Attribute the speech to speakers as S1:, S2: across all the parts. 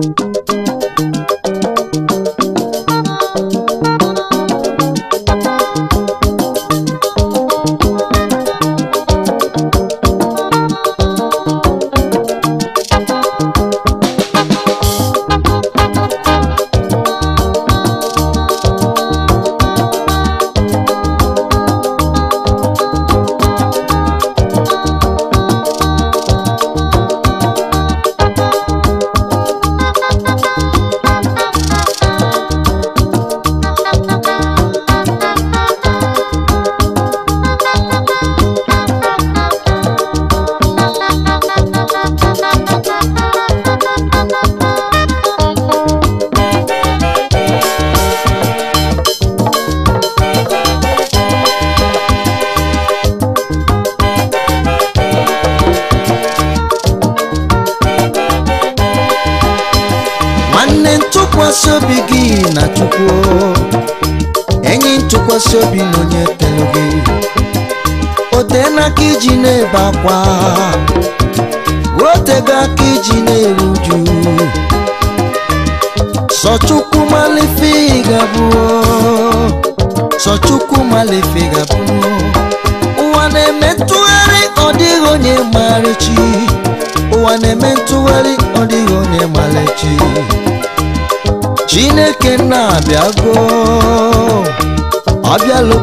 S1: Thank you.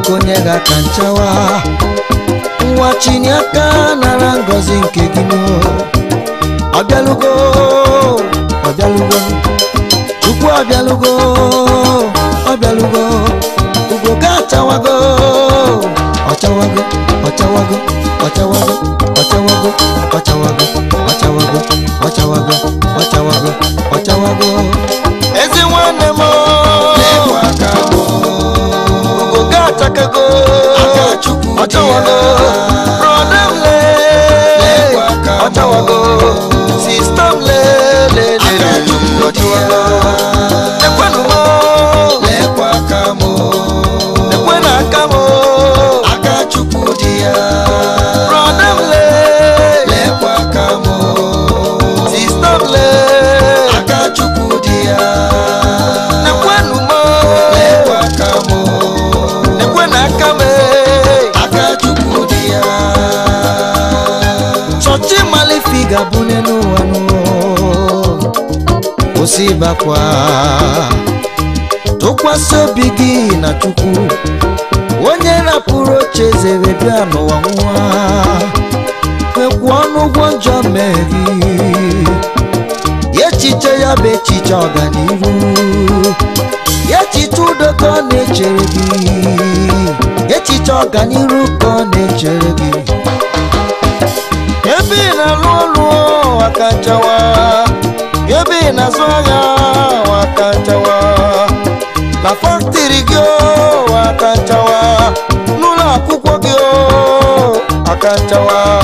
S1: okonye ga-aka nchawa nwa chiniaka nara ngozi nke gị ọbịalụgo ọbịalụgo chukwu ọbịalụgo ọbịalụgo ugo ga achawago ọchawago ọchawago ọchawago ọchawago ọchawago ọchawago ọchawago ọchawago ọchawago ga-abụ n'elu ụwa kwụsị ịbakwa tụkwasị obi gị na chukwu onye rapụrụ oche zere wee bịa n'ụwa nwa kwekwu ọnụ ụgwọ njọ mmeri echiche ya bụ echiche ọganihu echiche udo ka ọ na-echere gị echiche ọganihu ka ọ na-echere gị Yobi na lulu wakantawa Yobi na zoya wakantawa La fortiri gyo wakantawa Nula kukwa gyo wakantawa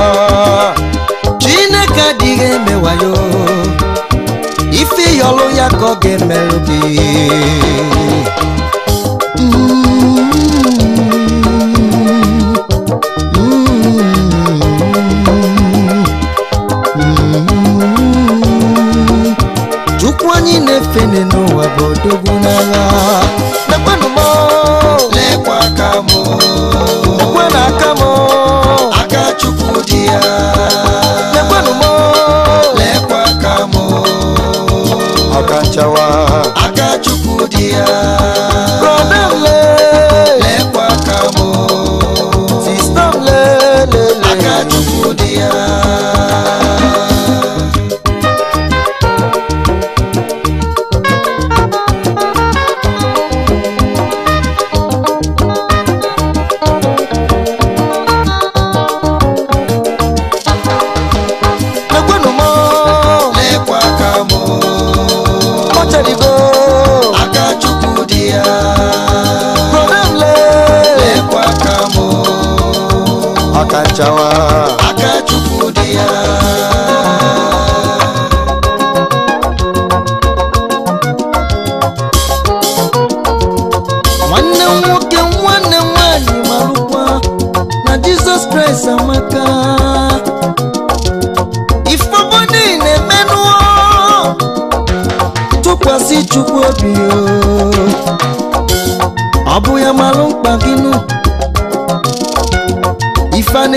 S1: Chineke dige mewayo Ife yolo yako gemelugi fini nu abodogunala nakwenu mo lekwa aka mo nakwenu aka mo aka chukwu di ya nakwenu mo lekwa aka mo aka nchawa di ya brọdele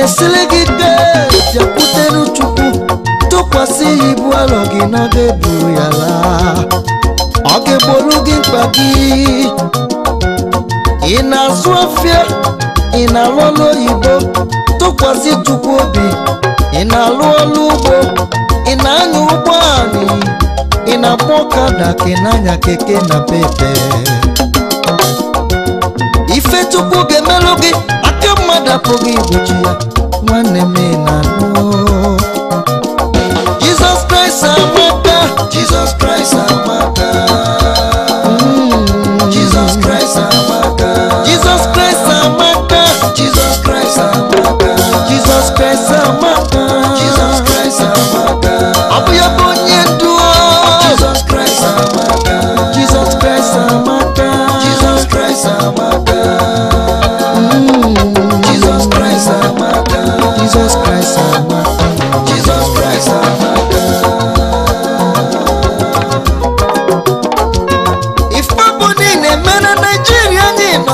S1: esili gị dee bịakwutenu chukwu tụkwasị ya ibu alọ gị na ọ ya laa ọ ga-egboro gị mkpa gị ị na-azụ afịa ị na-alụ ọlụ oyibo tụkwasị chukwu obi ị na-alụ ọlụ ugbo ị na-anya ụgbọ anyị ị na-akpọ ọkada ka ị anya keke na pepe ife chukwu ga-emelụ gị agapụghị igbochi ya nwanne m na-anụ mm. Jizọs Kraịst amaka Jizọs Kraịst amaka Jizọs Kraịst amaka Jizọs Kraịst amaka Jizọs Kraịst amaka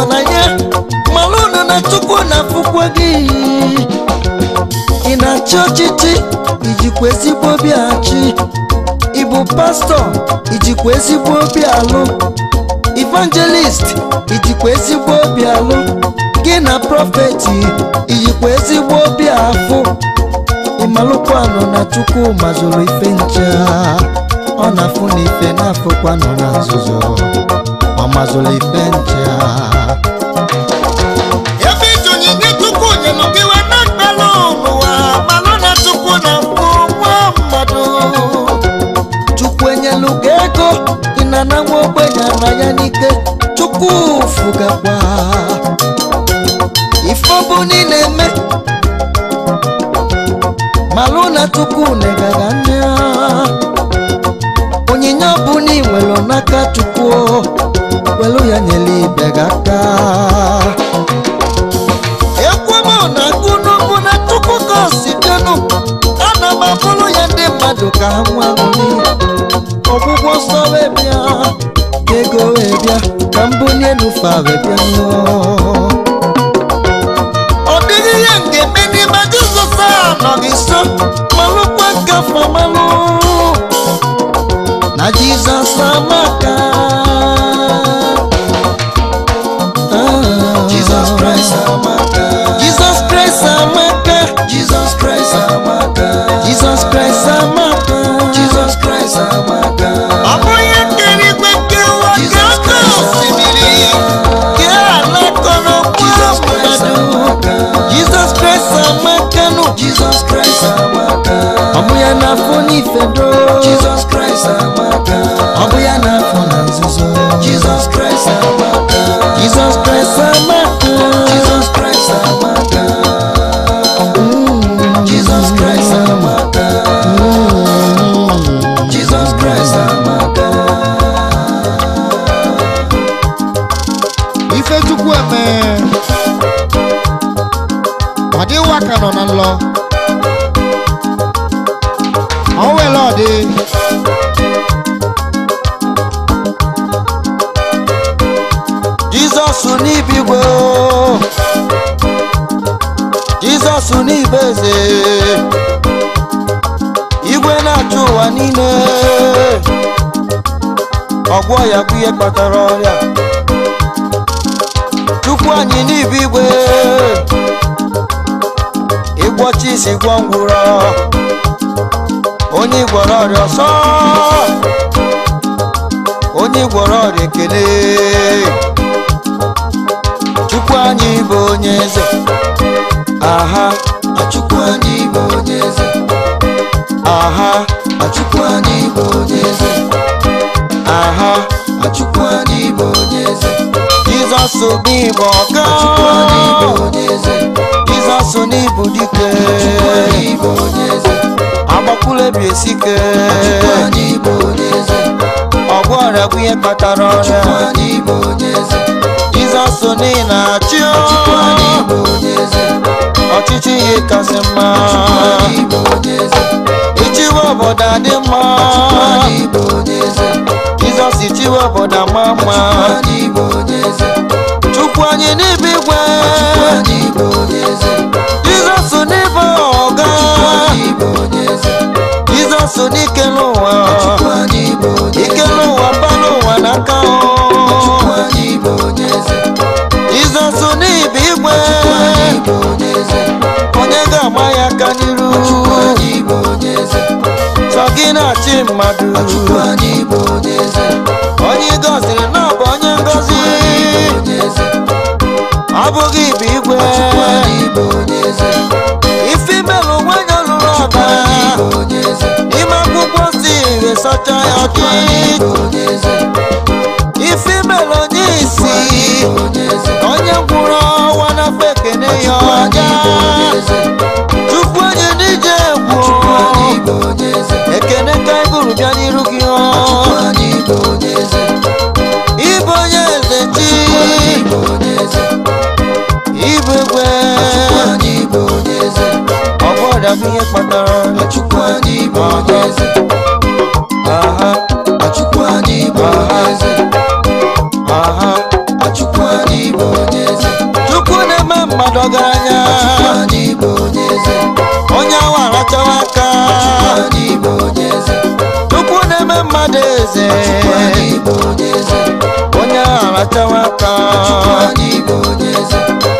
S1: nọ na ya mara unu na chukwu na-afụkwa gị ị na-achị ọchịchị ijikwa ezigbo obi achị ịbụ pastọ ijikwa ezigbo obi alụ evangelist ijikwa ezigbo obi alụ gị na prọfeti ijikwa ezigbo obi afụ ịmalụkwanụ na chukwu mazụrụ ife nche ọ na-afụ na ife na-afụkwanụ na nzuzo Mama Zulifencha Yavitu nyinyi tukunye nukiwe na kalunua Malona tukuna mkumwa mmadu Chukwenye lugeko inanamwe bwenya nayanike Chukufuga kwa Ifobu nineme Malona tukune gaganya Onyinya buni mwelonaka tukuo melụ ya nyere ibe gị aka ekwemo na gụnugwu na chukwu ka o sitenu ya ndị mmadụ ka ha nwa ọgwụgwọ nsọ wee bịa ego wee bịa ka m bunye n'ufe wee bịa ọ dịghị ihe m ga a na Jesus Christ amaka. Ọmọ yẹn na fún ní ìfẹ́ dó. Jesus Christ amaka. anyị kpatara ọrịa tupu anyị n'ibe igwe ịgwọcha isi gwọ ngwụrọ onye gwọrọ ọrịa ọsọ onye gwọrọ ọrịa ekele chukwu anyị bụ onye eze aha achukwu anyị bụ onye eze aha achukwu n'igbo ọka Jizọs n'ịbụ dike agbakwulebi esike ọgwụ ọrịa bụ ihe kpatara ọrịa Jizọs n'ihi na-achị ọchịchị ihe kasị mma ichiwe obodo adị mma Jizọs ichiwe obodo ama mma chukwu anyị n'ime igwe jizọs n'ebe ọga jizọs n'ike n'ụwa ike n'ụwa ba n'ụwa n'aka jizọs n'ibe igwe onye ga ama ya aka n'iru chọ gị na-achị mmadụ onye gọziri na ozi ọ bụghị ibe igwe ife imelụ nwanyị ọlụrụ ọba ime akwụkwọ si esocha ya ọchị ife imelụ onye isi onye gwụrụ ọnwa n'afọ ekene ya ọja chukwu onye n'ije egwu ekene ka anyị gụrụ bịa n'iru ya kpatara ọchụkwu anyị bụ onye eze aha ọchụkwu anyị bụ onye eze aha ọchụkwu anyị bụ onye eze chukwu na-eme mmadụ ọgaranya anyị bụ onye eze onye awa arachawa aka ọchụkwu anyị bụ onye eze chukwu na-eme mmadụ eze anyị bụ onye eze onye arachawa aka anyị eze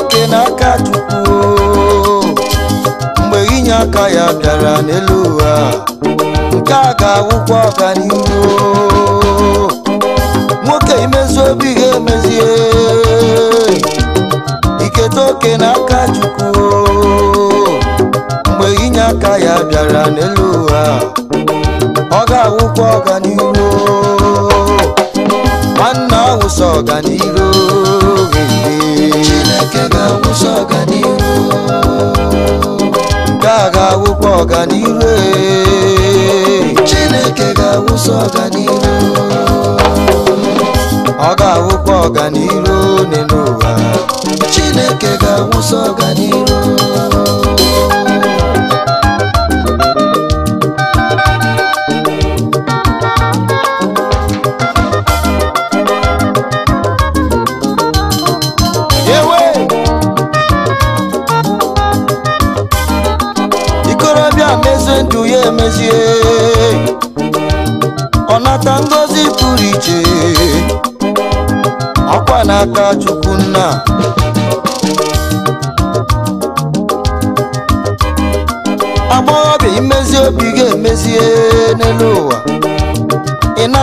S1: oke n'aka Chukwu mgbe inye aka ya bịara n'elu ụwa nke a ga-awụkwa ọganihu nwoke imezu obi ga-emezie iketa oke n'aka Chukwu mgbe inye aka ya bịara n'elu ụwa ọ ga-awụkwa ọganihu nwanne ahụ wụsa ọganihu ọganiru Chineke ga-awụsa ọganiru ọ ga-awụkwa ọganiru n'elu ụwa Chineke ga-awụsa ọganiru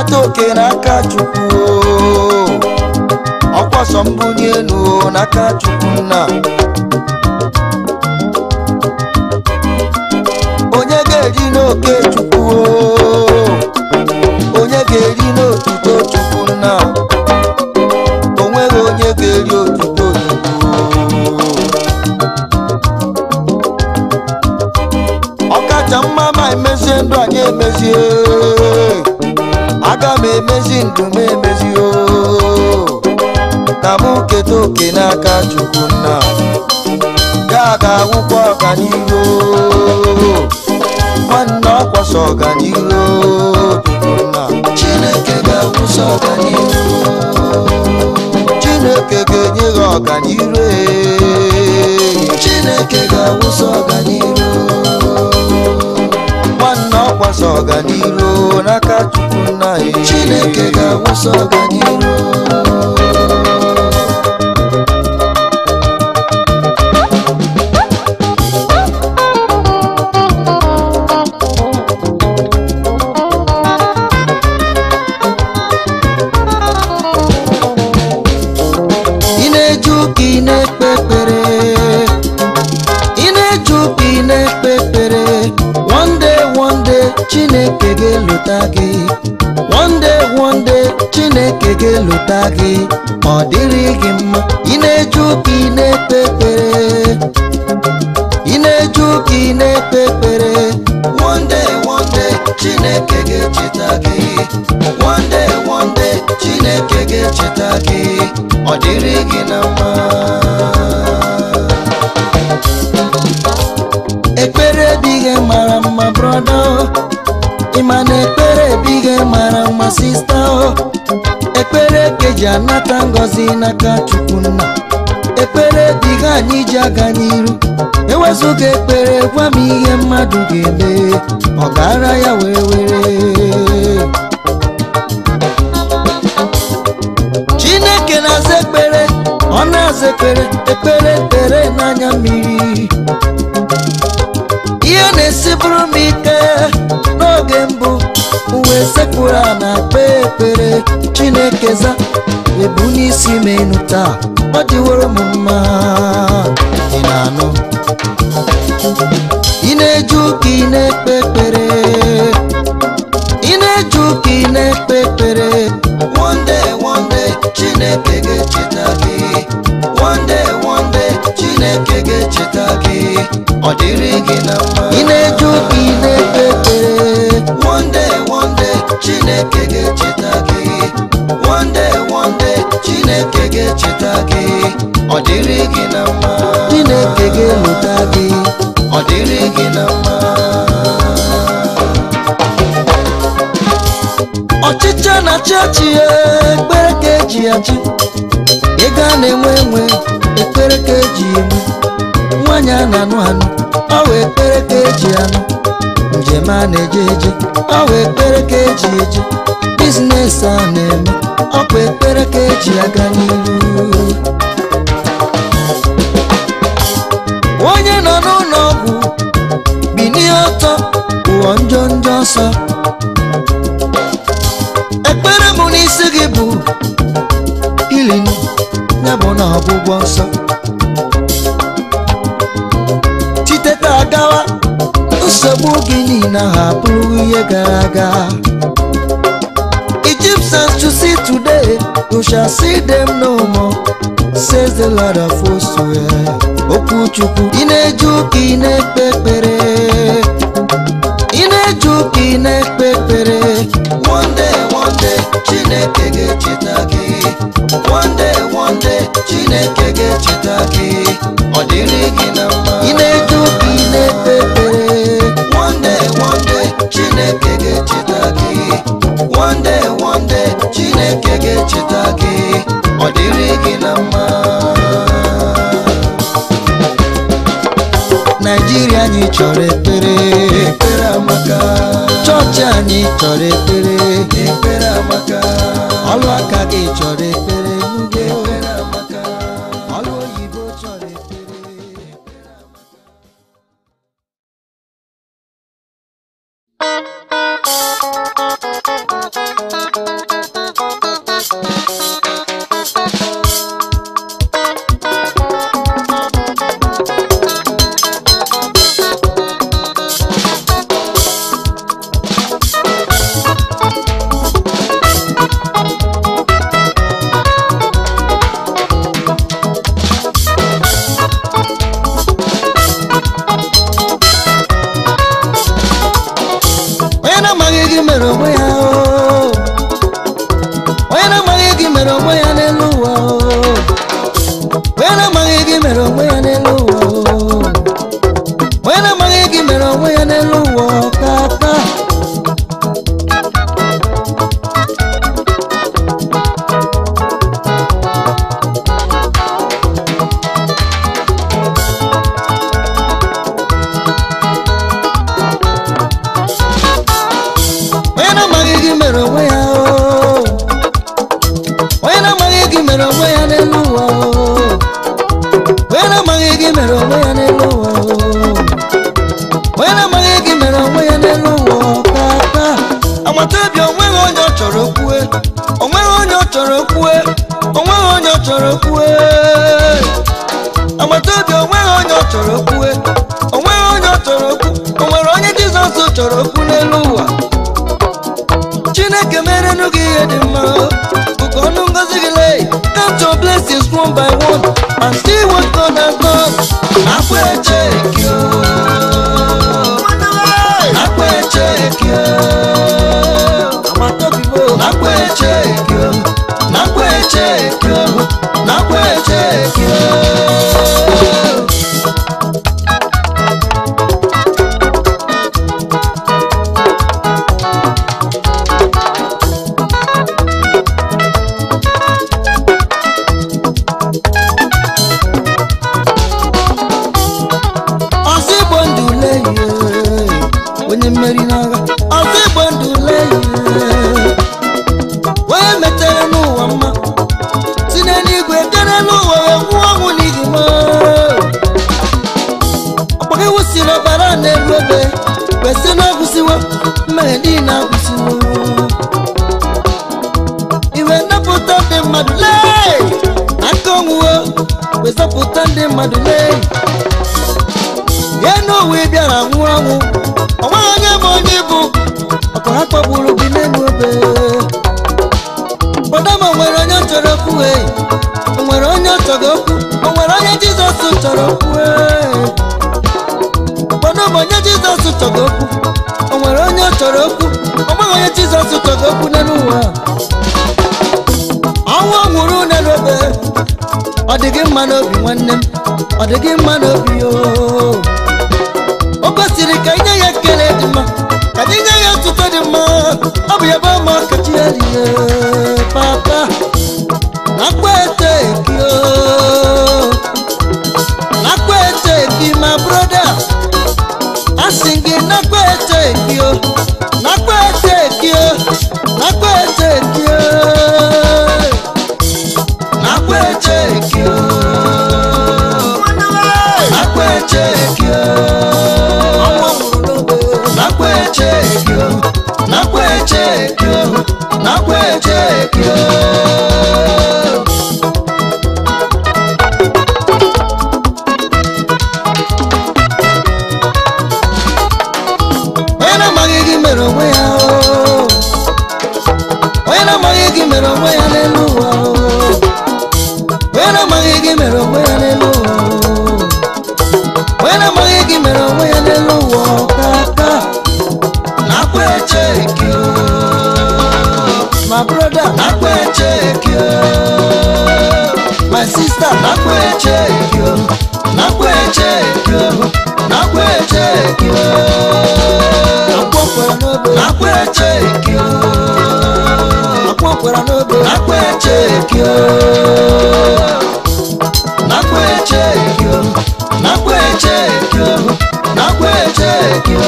S1: nata oke n'aka chukwu ọkwa sọ mbunye elu n'aka chukwu nna onye ga-eri n'oke chukwu onye ga-eri n'otuto chukwu nna ndị ndụ m emezi o ka oke n'aka chukwu nna ga aga akwụkwọ ọganihu nwanne ọkwasa ọganihu nna chineke ga-akwụsị ọganihu chineke ga-enye gị ọganihu chineke ga awụsa ọganihu ga-agbasa ọganiru n'aka Chukwu nna anyị Chineke ga-agbasa ọganiru chineke ga-elota gị one day one day chineke ga-elota gị ọ dịrị gị mma ị na-eju ka ị na-ekpe ekpere ị na-eju ka ị na-ekpe ekpere one day one chineke ga-echeta gị one day one day chineke ga-echeta gị ọ dịrị gị na mma ekpere dịghị mara mma brọdọ ị ma na ekpere ebighị mara mma sista o ekpere eke ji anata ngọzi n'aka chukwu nna ekpere dịghị anyị ji aga n'iru ewezụga ekpere gwa m ihe mmadụ ga-eme ọ gara ya were were chineke na-aza ekpere ọ na-aza ekpere ekpere tere n'anya mmiri ihe na-esibụrụ m ike n'oge mbụ uwe sekpụrụ a na-akpe ekpere chineke za ebu n'isi m enu taa ọ dịworo m mma ị na-anụ ị one day one day chineke ga-echeta gị chineke ga-echeta gị ọ dịrị gị na mma ị na-eju ka ị na-ekpe ekpere one day chineke ga-echeta gị one day chineke ga-echeta gị ọ dịrị gị na mma chineke ga-eleta gị ọ dịrị gị na mma jee na chọọchị ekpere ka eji achị ego a na-enwe enwe ekpere ka eji emu nwanyi a na-anụ anụ ọ wee ekpere ka eji anụ njem a na-eje eje ọ wee ekpere ka eji eje biznes a na-eme ọkwa ekpere ka eji aga n'ihu onye nọ n'ụlọ ọgwụ bi ọtọ ụọ njọ njọ ọsọ m na ọgwụgwọ nsọ chiteta agawa, nsogbu gị niile ahụ abụghị ihe gara aga Egyptians to see today, you shall see them no more, says the Lord of Okwu ị na-eju ka ị na-ekpe ekpere, ị na-eju ka ị na-ekpe ekpere. One day, one day, Chineke ga-echeta gị. One chineke ga-echeta gị ọ dịrị gị na mma ị na-eje ụka na-ekpe ekpere one day chineke ga-echeta gị one day chineke ga-echeta gị ọ dịrị gị na mma naijiria anyị chọrọ ekpere ekpere amaka chọọchị anyị chọrọ ekpere ekpere amaka ọlụaka aka gị chọrọ ekpere na eche ọ dị gị mma n'obi nwanne m ọ dị gị mma n'obi ooo n'ogo nakwa eche ekio nakwa eche ekio nakwa eche ekio nakwa eche ekio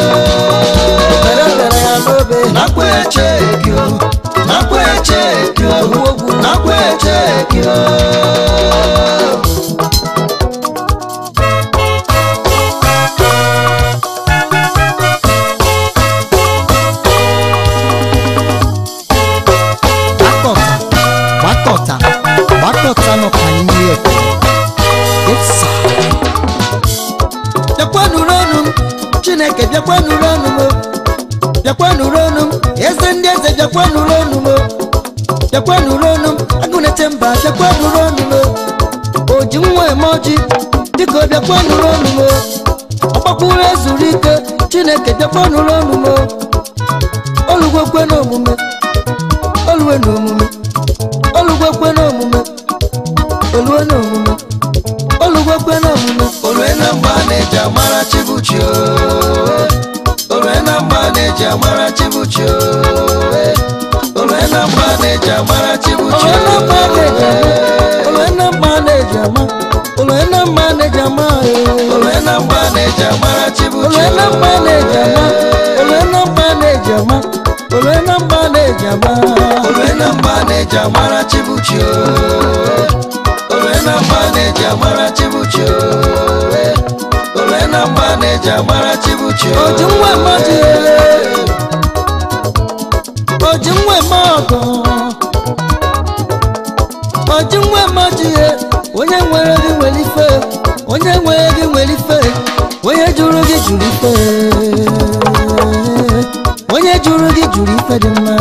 S1: obere obere ya n'obe nakwa eche ekio nakwa eche ekio nakwa eche ekio bịakwanụrụ ọnụ m bịakwanụrụ ọnụ m eze ndị eze bịakwanụrụ ọnụ m bịakwanụrụ ọnụ m agụnete mba bịakwanụrụ ọnụ m oji nwa eme ọjị dịka ọ bịakwanụrụ ọnụ m ọgbakwuru ezuru ike chineke bịakwanụrụ ọnụ m ole na mba na ama na mba na ama na mba na ama na mba na mba na mba na onye nwere gị nwere ife onye nwere gị nwere ife onye juru gị jụrụ ife dị mma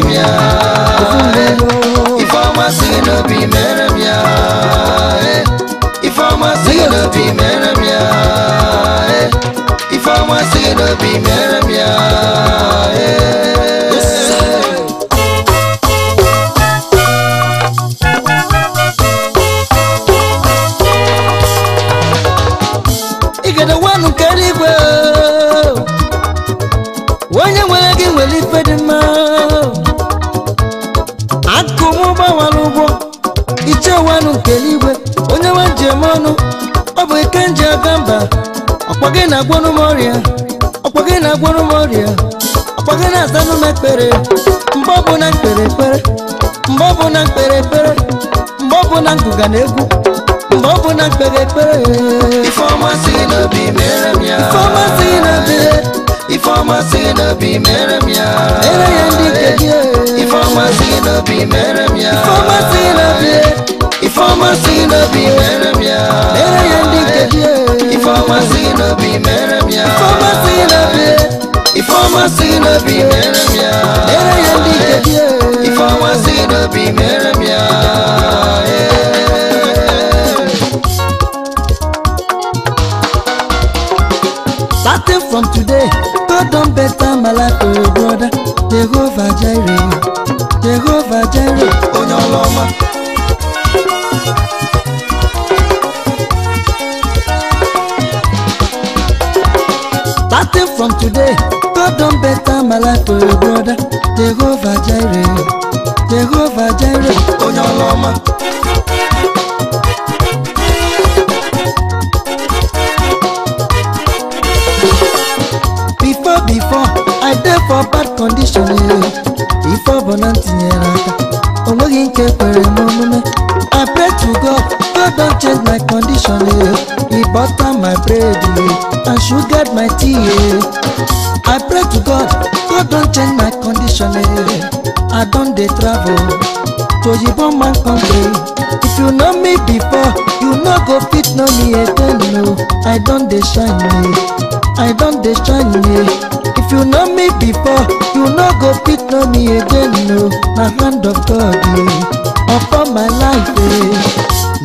S1: meremia If I'm a sin no be meremia If I'm a sin no be meremia If I'm a sin no be meremia gị na-agwọrụ m ọrịa ọkwa gị na-agwọrụ m ọrịa na-asanụ ekpere mgbe na mkpere ekpere mgbe na mkpere ekpere mgbe ngụga na egwu mgbe na mkpere ekpere Ifeọma n'obi mere ya Ifeọma si n'obi mere m ya ndị nke gị Ifamasi no be meremia. Mere yendi kedie. Ifamasi no be meremia. Ifamasi no be. Ifamasi no be meremia. Mere yendi kedie. Ifamasi no be Starting from today, God don better my life, oh brother. Jehovah Jireh, Jehovah Jireh, Onyoloma. from today god don better my life o your brother jehovah jireh jehovah jireh onye ọrụ ọma before before i dey for bad condition before bọna tinyere aka o nweghị nke kwere m omume i pray to god god don change my condition He butter my bread and sugar my tea. Sale. I don dey travel to Oyibo man country. If you know me before, you no go fit know me again. No, I don dey shine. I don dey shine. If you know me before, you no go fit know me again. No, na hand of God yeah. upon my life. eh.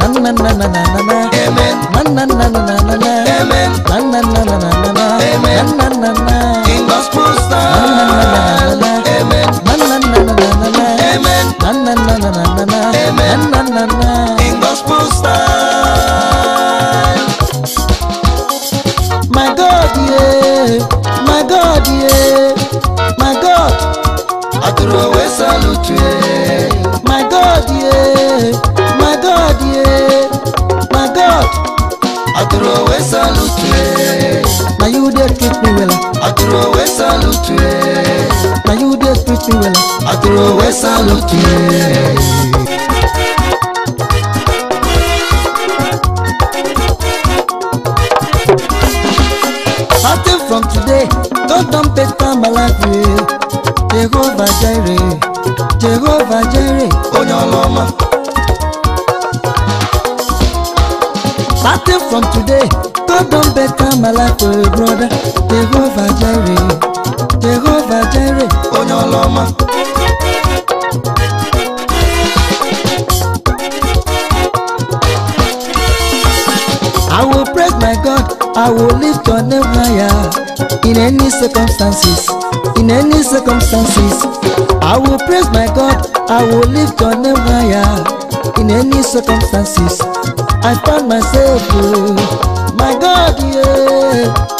S1: Na na na na na na na. Amen. Na na na na na na na. Amen. Na na na na na na na. Amen. Na na na. na throw away salute. I throw away salute, Now you me well ti wẹ̀lẹ̀ àtòrò wẹ́sà lókè. Starting from today, don't don better my life eh. Jehovah Jireh, Jehovah Jireh, onye ọrụ Starting from today, God don better my life, oh brother. Jehovah Jireh, Jehovah Jireh onye I will praise my God, I will lift your name higher in any circumstances, in any circumstances. I will praise my God, I will lift your name higher in any circumstances. I found myself, oh, my God, yeah.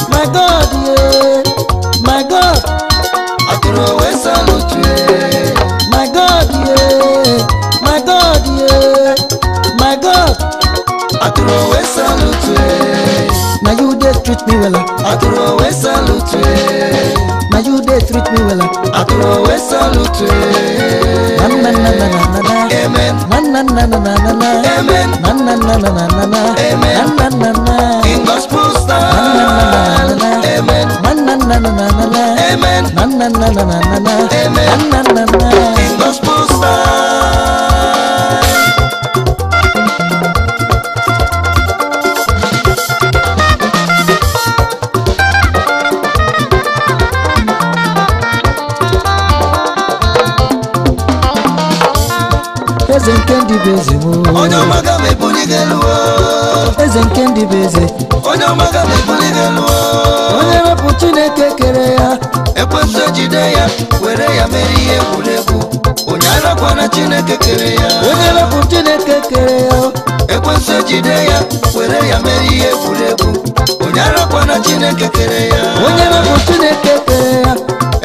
S1: me well. I throw away salute. Now you dey treat me well. I throw away salute. Na na na na na na. na. Amen. Na na na na na na. Amen. Na na na na na na. na. Amen. Na na na na. In gospel style. Na na na na na. Amen. Na na na na na na. Amen. Na na na na na na. Amen. Na na na na. In gospel style. eze nke ndị bụ eze onye wepụ chineke kere ya ekwentị ejide ya were ya mere ihe egwuregwu onye arakwana chineke kere ya onye wepụ chineke kere ya ekwentị ejide ya were ya mere ihe egwuregwu onye arakwana chineke kere ya onye wepụ chineke kere ya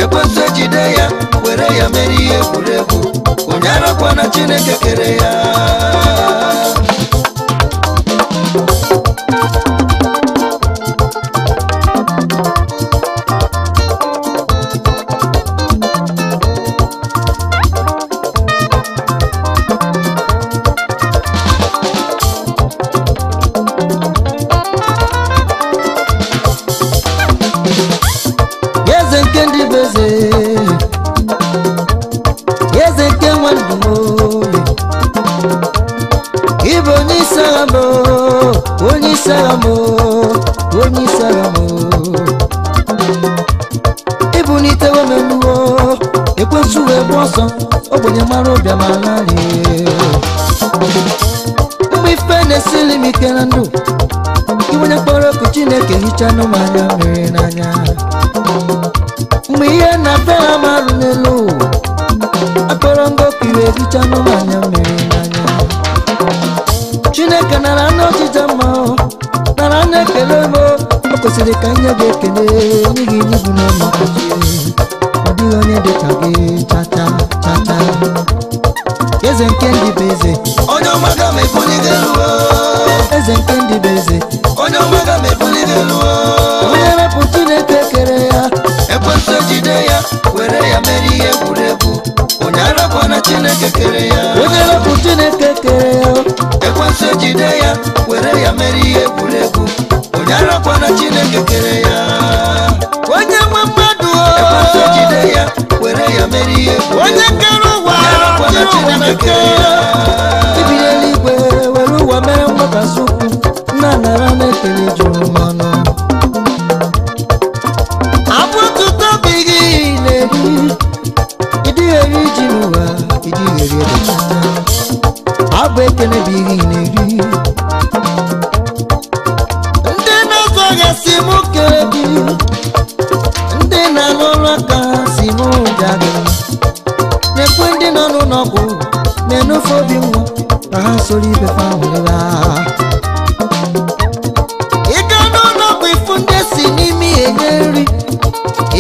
S1: ekwentị ejide ya were ya mere ihe egwuregwu onye arakwana chineke kere ya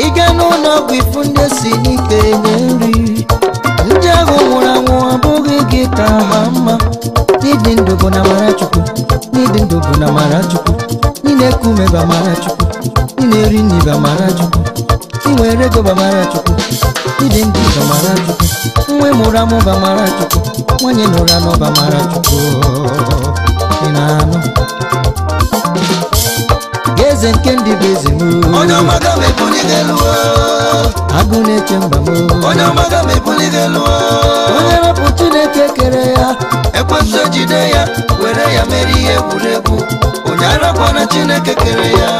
S1: ịga n'ụlọ ọgwụ ifu ndị esi n'ike nye nri ndị ahụ nwụrụ anwụ abụghị gị ka ha mma n'ịdị ndụ bụ na mara chukwu n'ịdị ndụ bụ na mara chukwu ị na-eku ume ba mara chukwu ị na-eri nri ba mara chukwu ị nwere ego ba mara chukwu ịdị ndụ ba mara chukwu nwe mụrụ amụ ba mara chukwu nwanyị na ụra nọ ba mara chukwu ị na-anụ eze nke ndị bụ eze m onye ọma ga m ebulite lụọ. agụ na-eche mba m onye ọma ga m ebulite lụọ. onye wepụ Chineke kere ya ekwesị ejide ya were ya mere ihe egwuregwu onye arakwana Chineke kere ya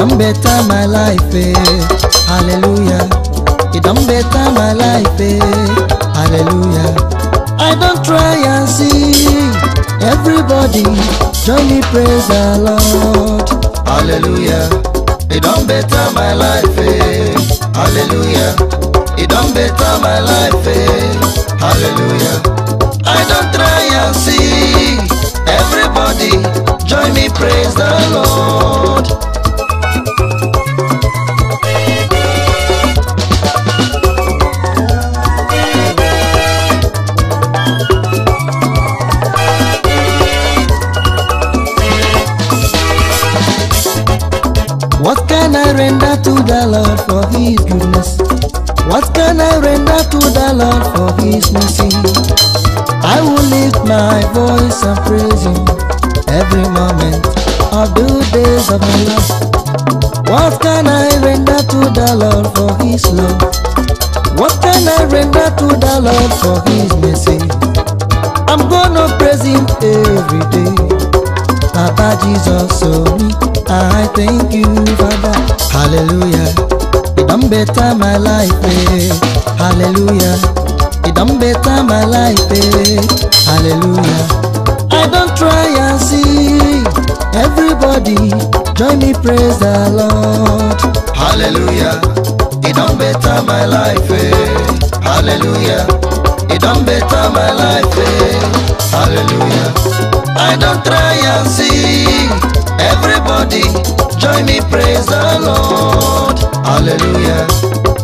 S1: don better my life eh. hallelujah e don better my life eh. hallelujah i don try and see everybody join me praise the lord hallelujah e don better my life eh. hallelujah e don better my life eh. hallelujah i don try and see everybody join me praise the lord. makes me sing. I will lift my voice and praise Him every moment of the days of my life. What can I render to the Lord for His love? What can I render to the Lord for His mercy? I'm gonna praise Him every day. Papa Jesus, so me, I thank you, Father. Hallelujah. I'm better my life, eh? Hallelujah better my life, eh. hallelujah. I don't try and see, everybody join me praise the Lord. Hallelujah, it don't better my life, eh. hallelujah. It don't better my life, eh. hallelujah. I don't try and see, everybody join me praise the Lord. Hallelujah,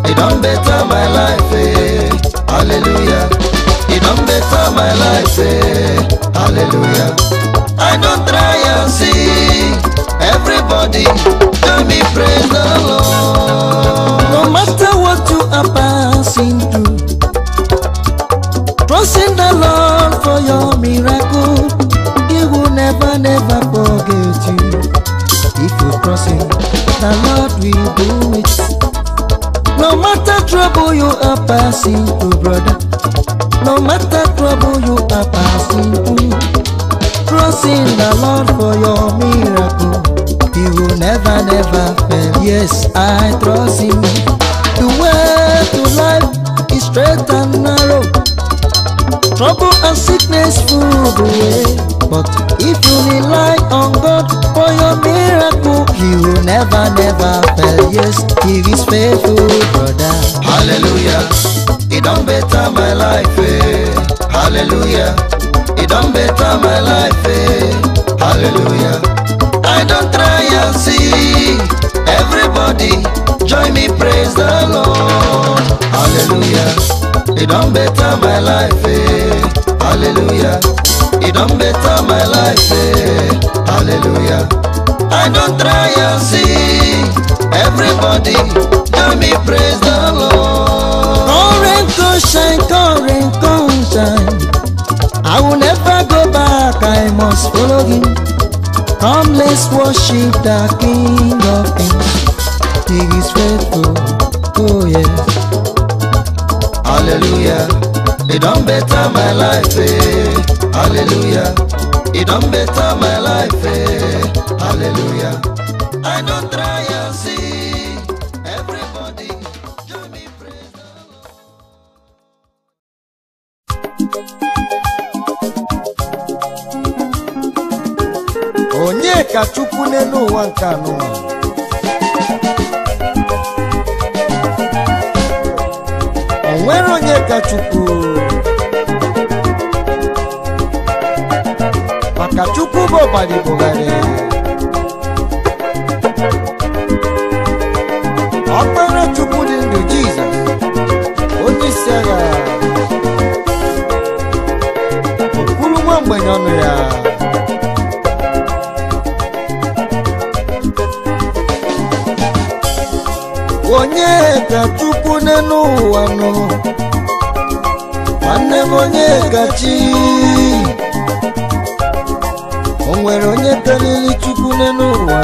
S1: it don't better my life, eh hallelujah e don better my life eh. hallelujah i don try and see everybody tell me praise the lord no matter what you are passing through trusting the lord for your miracle he will never never forget you if you trust him the lord will do trouble you are passing through, brother. No matter trouble you are passing through, trusting the Lord for your miracle. He will never, never fail. Yes, I trust Him. The way to life is straight and narrow. Trouble and sickness full the way. But if you rely on God for your miracle, He will never, never fail. Yes, He is faithful, brother. Hallelujah. It don't better my life, eh? Hallelujah. It don't better my life, eh? Hallelujah. I don't try and see. Everybody, join me, praise the Lord. Hallelujah. It don't better my life, eh? Hallelujah e don better my life eh hallelujah i don't try and see everybody let me praise the lord come rain come shine come rain come shine i will never go back i must follow him come let's worship the king of kings he is faithful oh yeah! hallelujah e don better my life eh. hallelujah. It done better my life, eh? hallelujah. I don't nobody bugharị ọkpara dị ndụ jizọ onye isi agha nwa mgbenye ọnụ ya onye ga chukwu n'elu ụwa nọ nwanne m onye ka onwere onye karịrị chukwu n'elu ụwa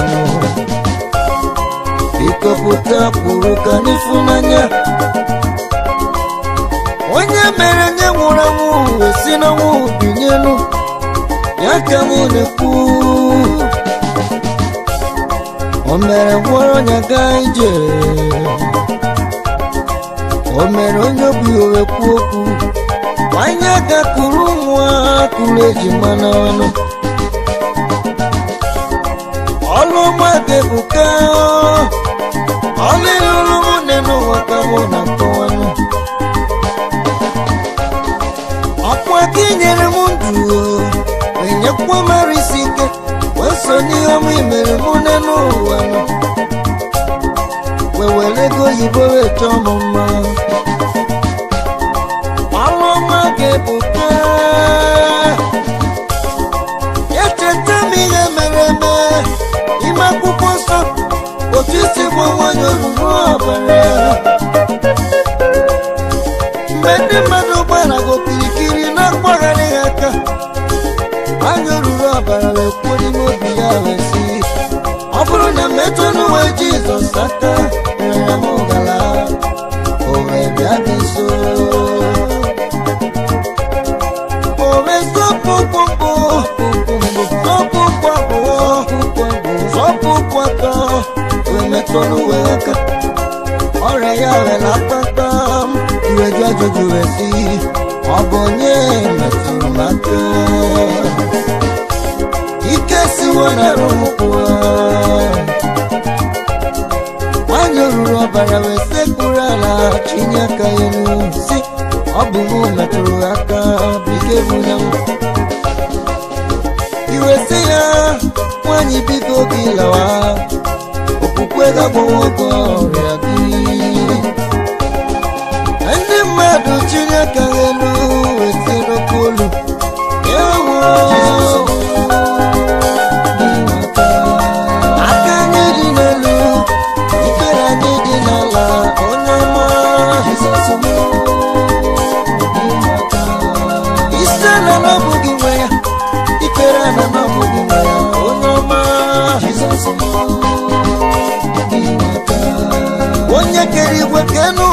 S1: ịkọpụta pụrụ ka n'ịfụnanya onye mere nye nwụrụ anwụ esi n'ọnwụ binyelu ya ka m na-ekwu o mere gwọrọ ya gaa ije o mere onye obi owe kwuo okwu anya aka kụrụ ụmụ eji kụrụ ọnụ. ọlụmadị buka ọlụlụrụ nwunye n'ụwa ka mụ na ntọwanụ ọkwa ka inyere m ndụ enyekwa mara isi ike wee so n'ihe m imere mụ ne wee wewere ego oyibo wee chọọ m mma ọgwụ nwanyị ọgwụgwụ ọbara mgbe ndị mmadụ gbara gokirikiri na mgbararị ha aka anya ruru ọbara na-ekwuo n'ime obi ya wesi ọ bụrụ na mmetụ n'uwe jizọs aka ya m gara o wee bịa o wemetọrụ wee ọrịa ya wela kpata iweju ọ bụ onye metụrụ ike siwo na ụmụkwụwa nwanyị ruru ọbara wee sekpuru ala ya ọ bụ metụrụ aka bụ ike nwanyị bido pueda ọrịa gị ndị mmadụ Chineke elu wetara olu ewo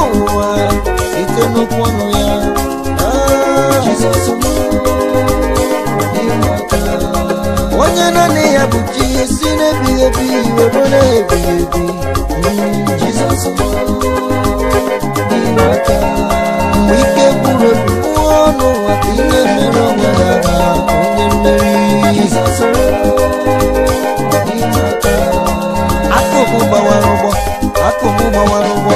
S1: n'ụwa ike n'okwu ọnụ ya ah, onye naanị ya bụ chi si n'ebighị ebi were na-ebighị ebi Jizọs mgbe ike gwụrụ obi pụọ n'ụwa ka ihe mere ọgaranya onye mmeri Jizọs akụkụ gbawara ụgbọ akụkụ gbawara ụgbọ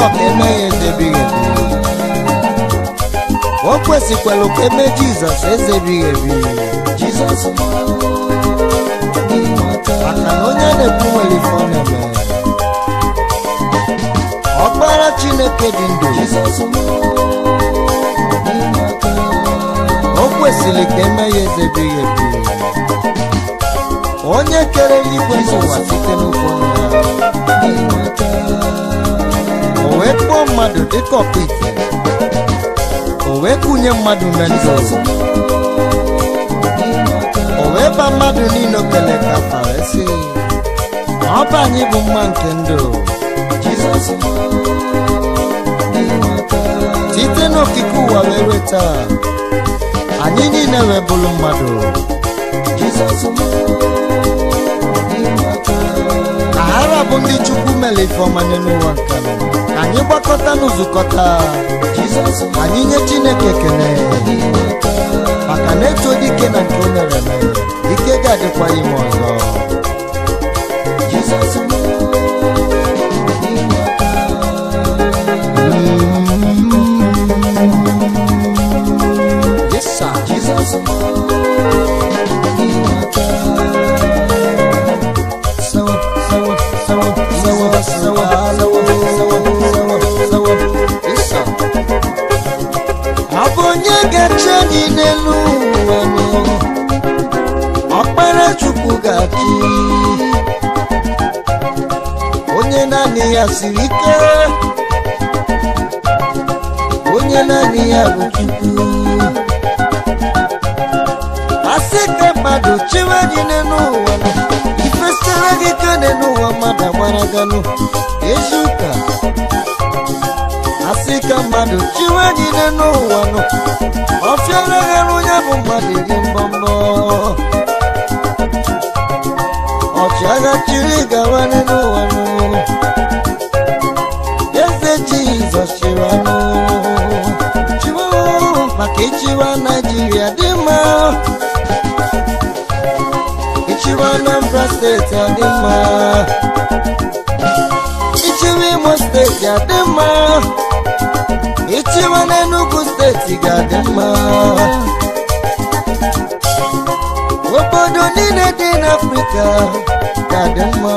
S1: abụrụ ka eme ya ezebighị ebi o kwesịkwara ka eme jizọs ezebighị ebi jizọs maka na onye na-ekwu nwere ife ọ na-eme ọkpara chineke dị ndụ o kwesịrị ka eme ya ezebighị ebi onye kere eluigwe n'ụwa site n'okwu ya o wee mmadụ dịka ọkpụ ite o kụnye mmadụ na ndị o wee ba mmadụ niile okele ka fa wee sị ọba anyị bụ mma nke ndụ site n'okike ụwa wee weta anyị niile wee bụrụ mmadụ Jizọs ara bụ ndị chukwu mere ifeọma n'ụwa ka anyị gbakọta n'ụzụkọta anyị nye chineke ekele maka na dị dike na nke o mere ike ga-adịkwa ime ọzọ na-eche gị n'elu ụwa ọkpara chukwu ga-achị onye naanị ya siri ike onye naanị ya bụ chukwu asị ka mmadụ chewe gị n'elu ụwa ifesara gị ka n'elu ụwa mmadụ agbara ganụ ezu ụka asị ka mmadụ chiwe niile n'ụwa nọ ọfịara ghara onye bụ mmadụ dị mbọmbọ ọchịagha chiri gawarị n'ụwa nọ eze jizọs chịrị anụ chiwe maka ịchịwa naijiria dị mma ịchịwa anambra steeti adị mma ichiwe imo steeti adị mma na n'enugwu steeti ga-adị mma obodo niile dị n'afrịka ga-adị mma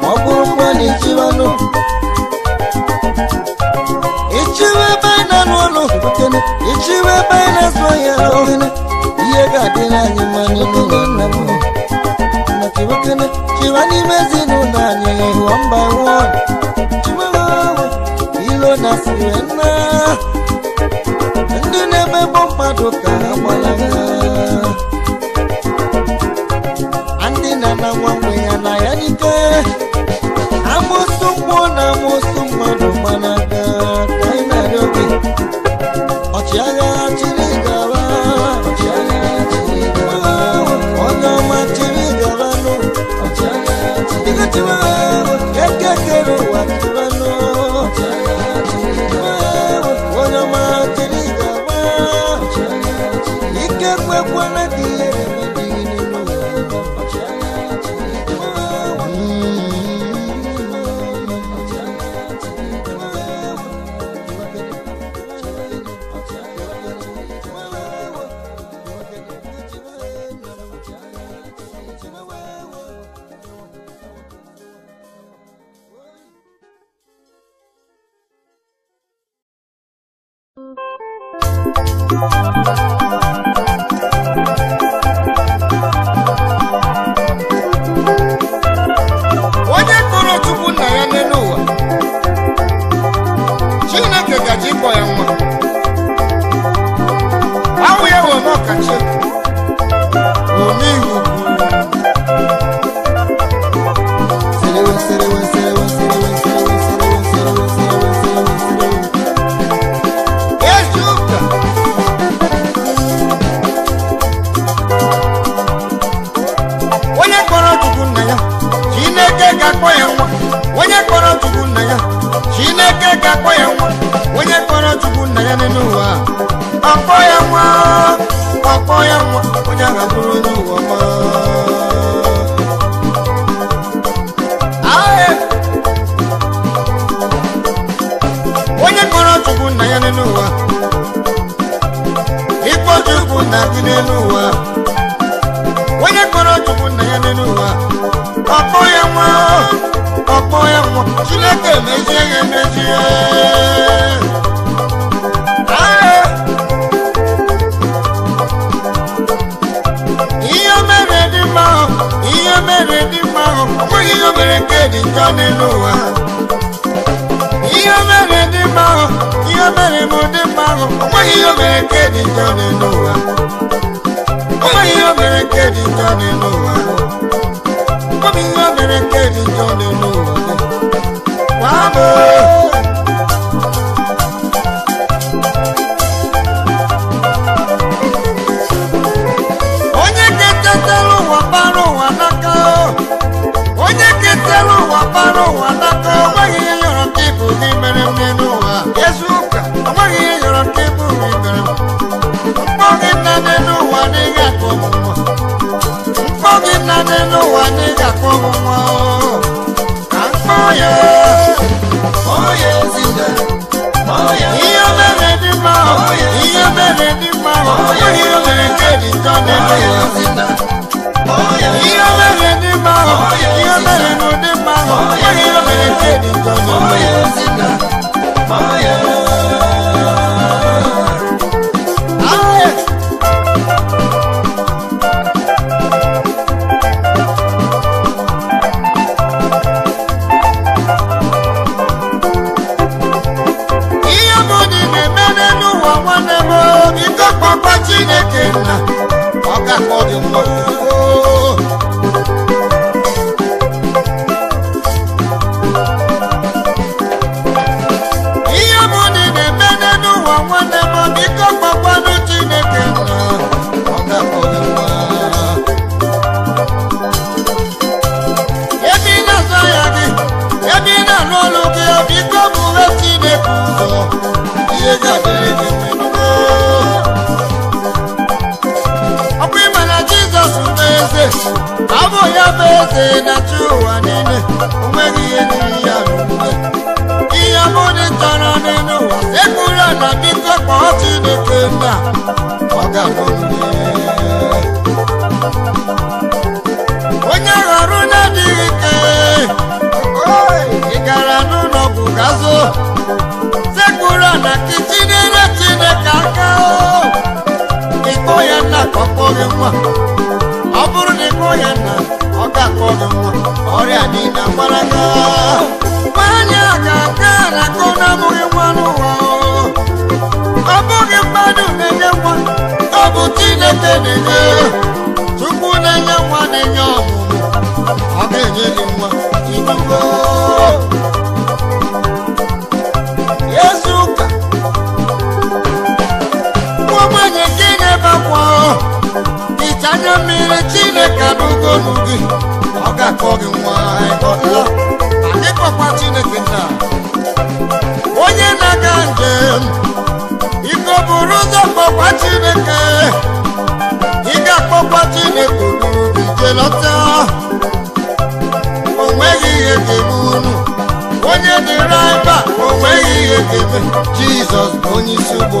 S1: ma ọ bụrụ mma na ichiwenụ ichiwe ebe anyị na-arụ ọrụ ichiwe ebe anyị na-azụ ahịa ihe ga-adị n'anyị mma n'ime na nna m chiwekene chiwe n'ime ezinụlọ anyị hụọ mba wụọ ilo na siwe nna ndị na-emegbu mmadụ ka ha ndị na na ya na ya ọbụ ime na jizọs bụ eze abụ ya bụ eze na chi ụwa niile onweghị n'aka o ịkpọ ya nna ka ọ kpọọ gị nwa ọ bụrụ na ịkpọ ya nna ọ ga-akpọ gị nwa ọrịa niile agbara gị nwaanyị a ga-aga arakọ na-abụghị nwa n'ụwa ọ bụghị mmadụ na-enye nwa ọ bụ Chineke na-enye tupu na-enye nwa na-enye ọmụmụ ọ ga-enye gị nwa ibugo anya mmiri chineke n'ugolu gị ọ ga-akọ gị nwa anyị kpọkwa chineke nna onye na-aga njem iko buru ụzọ kpọkwa chineke ị ga-akpọkwa chineke ogolu gị jelọta o ihe ga-eme unu onye dịra ebe a ihe ga-eme jizọs bụ onye isi ụgbọ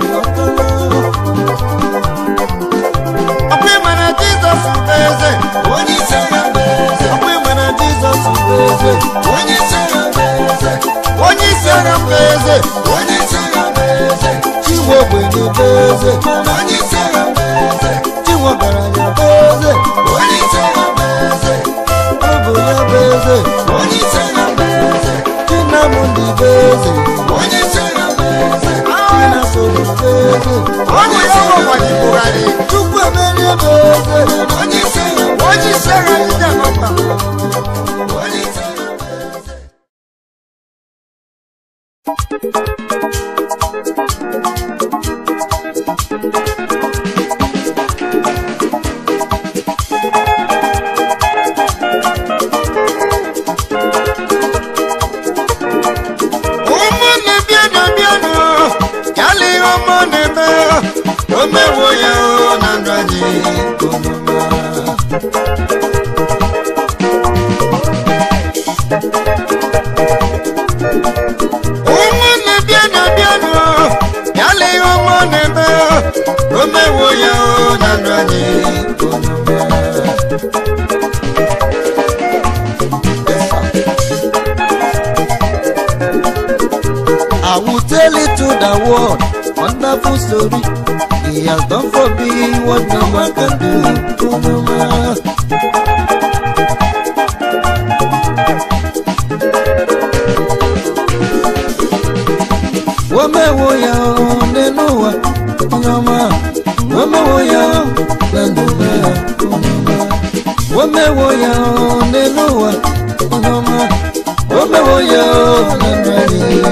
S1: eze onye sere mba eze onye sere mba eze onye sere mba chiwo bụ eze onye sere mba chiwo bụ eze onye sere ya bụ eze onye sere mba bụ eze onye sere mba bụ eze onye sere mba bụ eze onye sere onye sere Thank you. world, wonderful story. He has done for me what no man can do. Oh, no man. Wọ́mẹ̀ wo ya ọ̀hún nínú ya lẹ́nu mẹ́? Ọ̀nàmà. wo ya ya ọ̀hún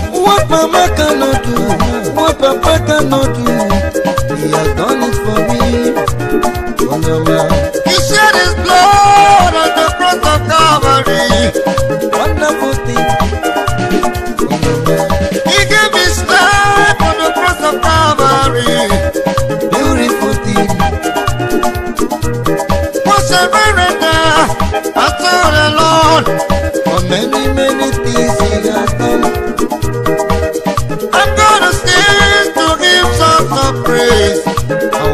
S1: mama cannot do papa cannot do he has done it for me he shed his blood on the cross of calvary wonderful thing he his cross of calvary beautiful thing many many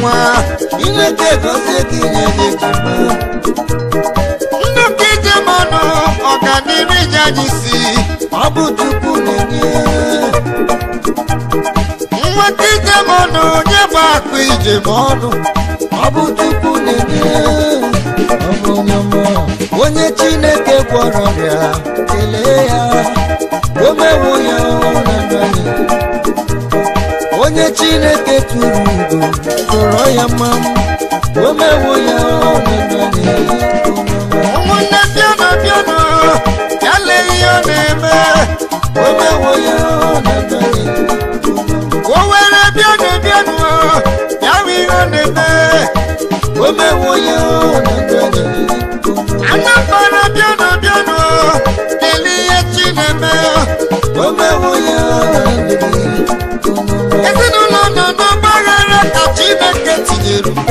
S1: nwa inweta ego tinye gị nnukwu ijemanụ ọganiru ịnyanya isi ọ bụ Chukwu na-enye nweta ijemanụ onye bụ akụ ijemanụ ọ bụ Chukwu na-enye onye Chineke gwọrọ ọrịa kelee ya omewo ya ụra onye chineke tụrụ igbo tụrọ ya mma omewo ya ụmụnne bịana bịana ya lee ihe ọ na-eme omewo ya o were bịana bịana ya ihe ọ na-eme omewo ya bịana bịana ihe na-eme omewo ya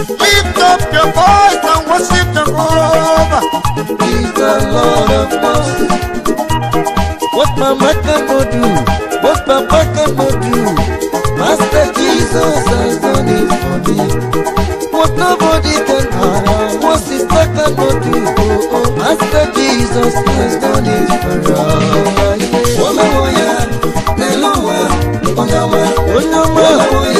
S1: Lift up your voice and worship Jehovah. He's the Lord of hosts. What mama can go do, what papa can go do, Master Jesus has done it for me. What nobody can do, what sister can go do, Master Jesus has done it for us. Woman, woman, woman, woman, woman, woman, woman,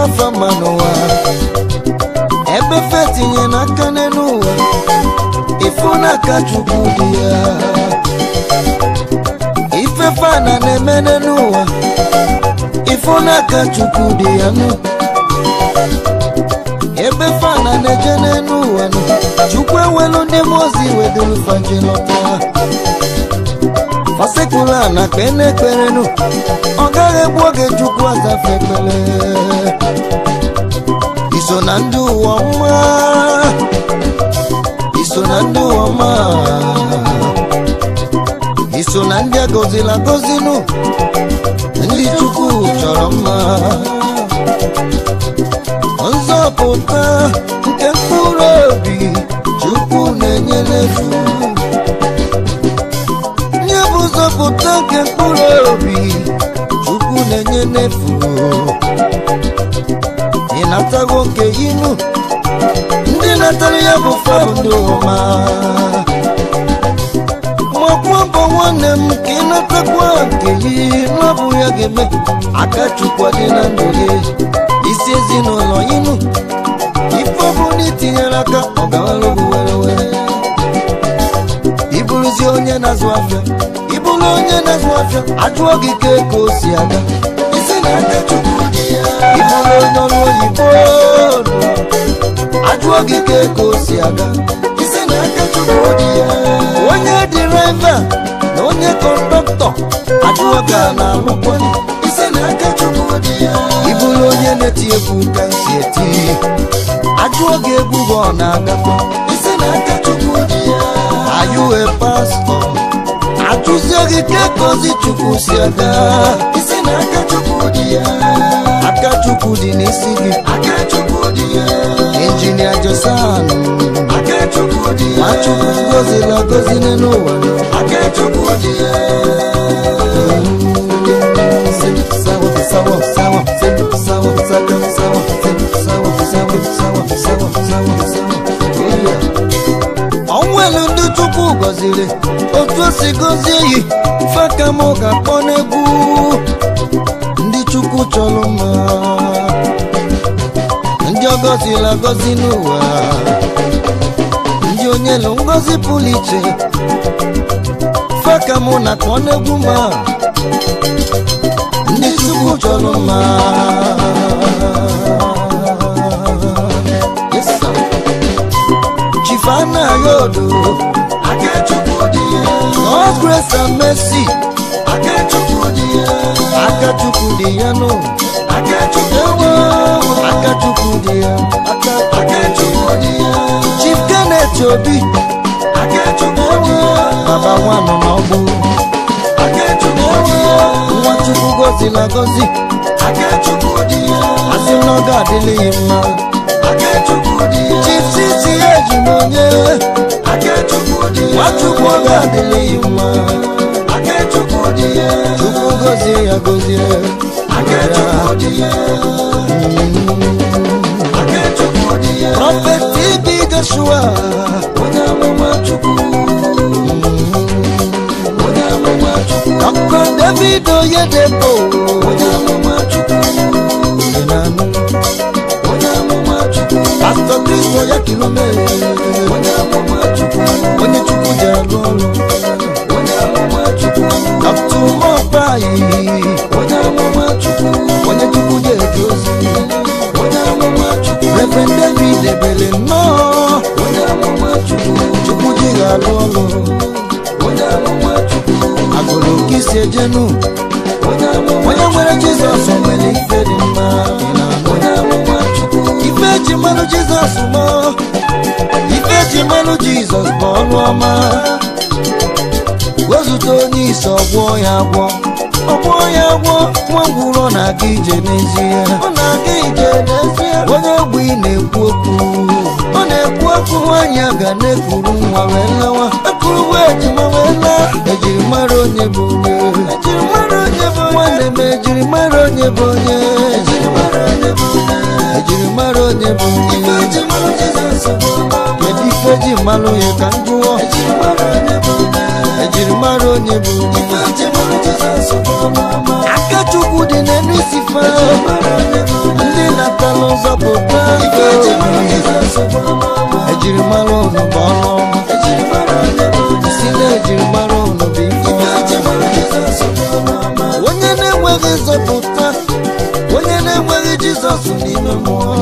S1: n'afọ ma n'ụwa ebe fe tinye n'aka n'elu ụwa ifu n'aka chukwu dị ya ife fana na-eme n'elu ụwa ifu n'aka chukwu dị ya nụ ebe fana na-eje n'elu ụwa nụ chukwu ewelu ndị mmụọ ozi weduru faje lọta sekpuru na kpene ekperenu ọ gaghị egbu oge chukwu azafe ekpere iso na ndị ụwa mma iso na ndị uwe mma iso na ndị agọzila gozinu ndị chukwu chọrọ mma nzọpụta nke mkpụrụ obi chukwu na-enye n'efu Mkpụrụpụta nke mkpụrụ obi Chukwu na-enye n'efu ị natago nke inu ndị natara ya bụ fandị ụma makwa bụ nwanne m ka ị natakwa nke inu ọ ya ga-eme aka Chukwu dị na ndụ gị isi ezinụlọ inu ife na itinyere aka ọ gawara were were onye na-azụ afịa bụrụ onye na-azụ afịa ajụọ gị ka ego si aga ị bụrụ onye ọrụ oyibo ajụọ gị ka ego si aga onye dịraiva na onye kọndọktọ ajụọ gị a na-alụkwa ị bụrụ onye na-eti egwu ka isi eti ajụọ gị egwu bụ ọ na-agakwa are you a tusiagike kozichukusiaga isina akachukudia akachukudi injinia josanu akachukudia machukudu ọnwụelu ndị Chukwu gọziri otu o si gọzie yi fakam ga-akpọ n'egwu ndị chukwu chọrọ mma ndị ọgọzila gọziri n'ụwa ndị onye lụ ngọzi pụrụ iche fakam na-akpọ n'egwu ma ndị chukwu chọrọ mma Fana Yodo. Akechukwu Odie. All grace and mercy. Akechukwu Odie. Akechukwu Odie no. Akechukwu Odie. Akechukwu Odie. Akechukwu Odie. Chief Kenneth Obi. Akechukwu Odie. Baba wa mama ọgbọ. Akechukwu Odie. Nwachukwu gozi na gozi. Akechukwu Odie. Asị n'oge adịghị mma. Akechukwu Odie. Chifti siye jumonye Wachukwu ga adịlị mma Chukwu gozie ya gozie Prophet TB Joshua Onye amụma Chukwu Dr. David Oyedepo Onye amụma Chukwu pastọ kristo ya kilomita onye chukwu ji arụ ọrụ kaptụ mọkpa anyị onye chukwu ji eji ozi refren david ebere nnọọ chukwu ji ga-arụ ọrụ agụrụ ka isi ejenu onye nwere jizọs nwere ife dị mma eji mmanụ jizọs mụọ ife eji mmanụ jizọs bụ ọnụ ọma wezụta onye isi ọgwọ ya agwọ ọgwọ ya agwọ nwa ngwụrọ na-aga ije n'ezie onye ogbe ị na-ekwu okwu ọ na-ekwu okwu nwaanyị a ga na-ekuru nwa wee lawa ekuru nwa ejima wee laa ejiri e mara onye bụ onye nwanne m ejiri mara onye bụ onye e ka jiri mara onye bụ kedu ife ji mmalụ ya ka m jụọ ejiri mara onye bụ aka chukwu dị n'elu isife ndị natala ụzọ bụ ejiri mara ụnụ bụ ọnụ ọma si na ejiri mara ụnụ bụ ife onye na-enweghị nzọpụta onye na-enweghị jizọs n'ime mmụọ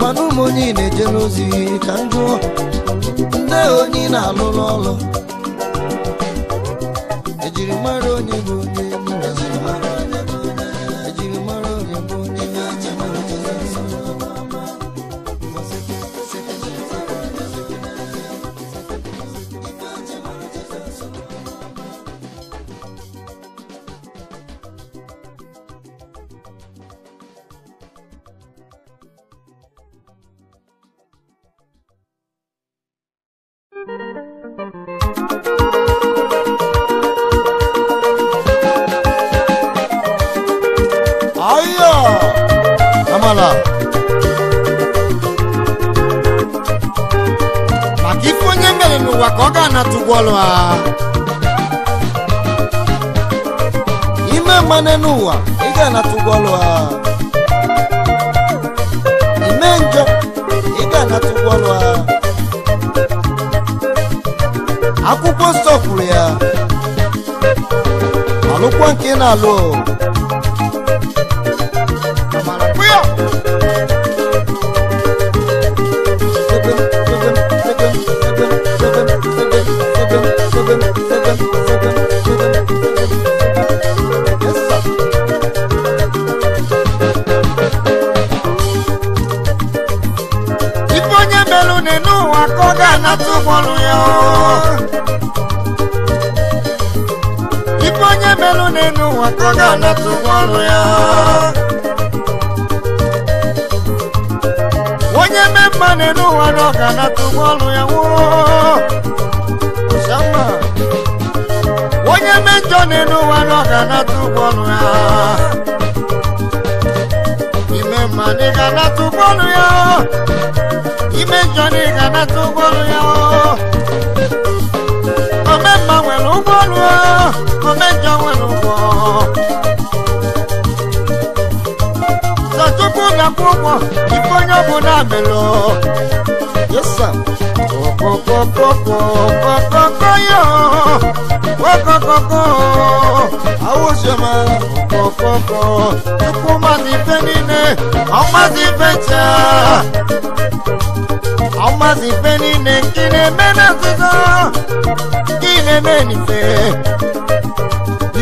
S1: mana ụmụ onye na-eje n'ozi ka m jụọ nne onye na-alụrụ ọrụ ejiri mara onye bụ onye ¡Gracias! ya onye mejọ na ọ ga ya ime na tu ga-anata ụgwọ ya ime njọ na ị omemma nwere ụgwọ ọlụ omejọ nwere na-akwụ ụgwọ ife onye ọ bụla na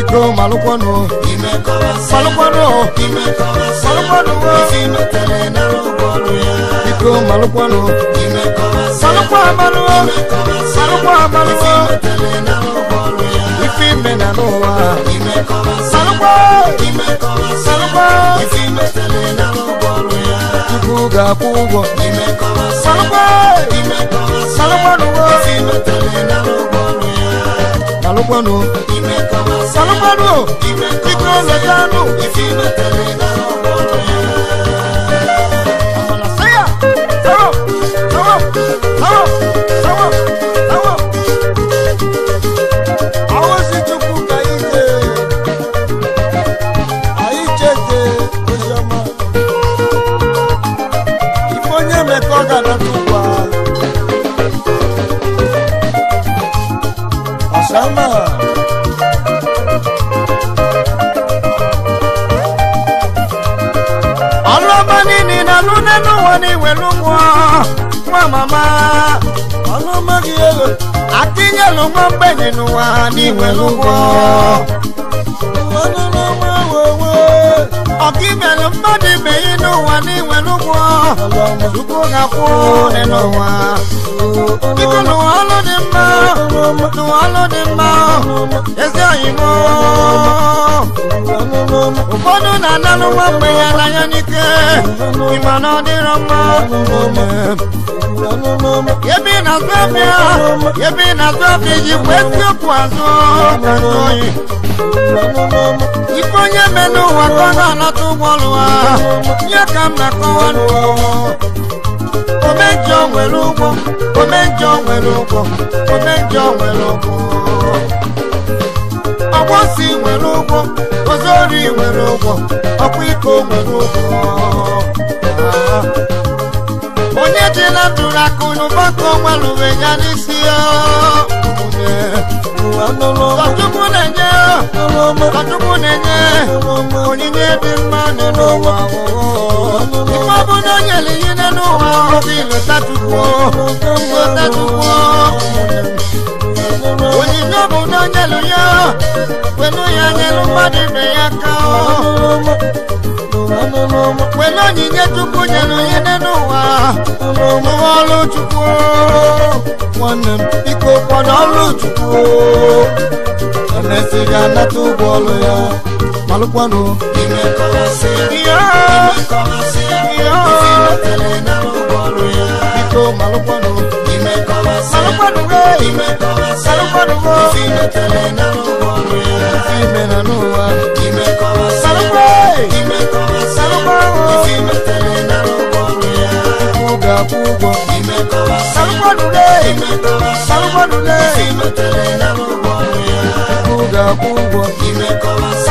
S1: Bro, Malukwano, Malukwano, Malukwano, Bro, Malukwano, Malukwano, Malukwano, Ifime na noa, Salukwa, Salukwa, Kuga kugo, Salukwa, Salukwa, Salukwa, Salukpanu Salukpanu Ikwe Lekanu y ni iwelu nwụọ nwa mama ọnụ amaghị ego atinyelu nwa mgbenye wa ni iwelu ọkibelu mmadụ ibe ya n'ụwa n'inwere ụgwọ chukwu ga-akwụ ụdị n'ụwa biko n'ụwa ọlụ dị mma n'ụwa ọlụ dị mma ezi oyimo ụfọdụ na-analụ nwa mgbe ya n'anya n'ike ịma na ọ dịrọ ebe ị na-azụ afịa ebe ị na-azụ afịa azụ oyi ife onye mee n'ụwa ka ọ na-anata ụgbọ ọrụ ha ka m na-akọwa omenjọ nwere ụgwọ omenjọ nwere ụgwọ omenjọ nwere ụgwọ ọgbọsi nwere ụgwọ ozori nwere ụgwọ ọkwa iko nwere ụgwọ onye dị na ndụ na akụnụba ka ọnwa lụwe ya n'isi ya na-enye ọchukwu na-enye onyinye dị mma n'ụwa ife ọbụla o nyere ihe n'elu ụwa ọbụ ilotatukwo onyinye ọbụla o nyere ya kwenu ya nyelu mmadụ ibe ya ka wena onyinye chukwu nyere onye dị n'ụwa nwe ọrụ chukwu nwanne m biko kwana ọrụ chukwu emesi ga-anata ụgwọ ọrụ ya malụkwanụ biko malụkwanụ malụkwanụ malụkwanụ ime na n'ụwa malụkwanụ ga-akwụ ụgwọ salụgbọdụle salụgbọdụle ego ga-akwụ ụgwọ salụgbọ ụgwọ bụrụ ibere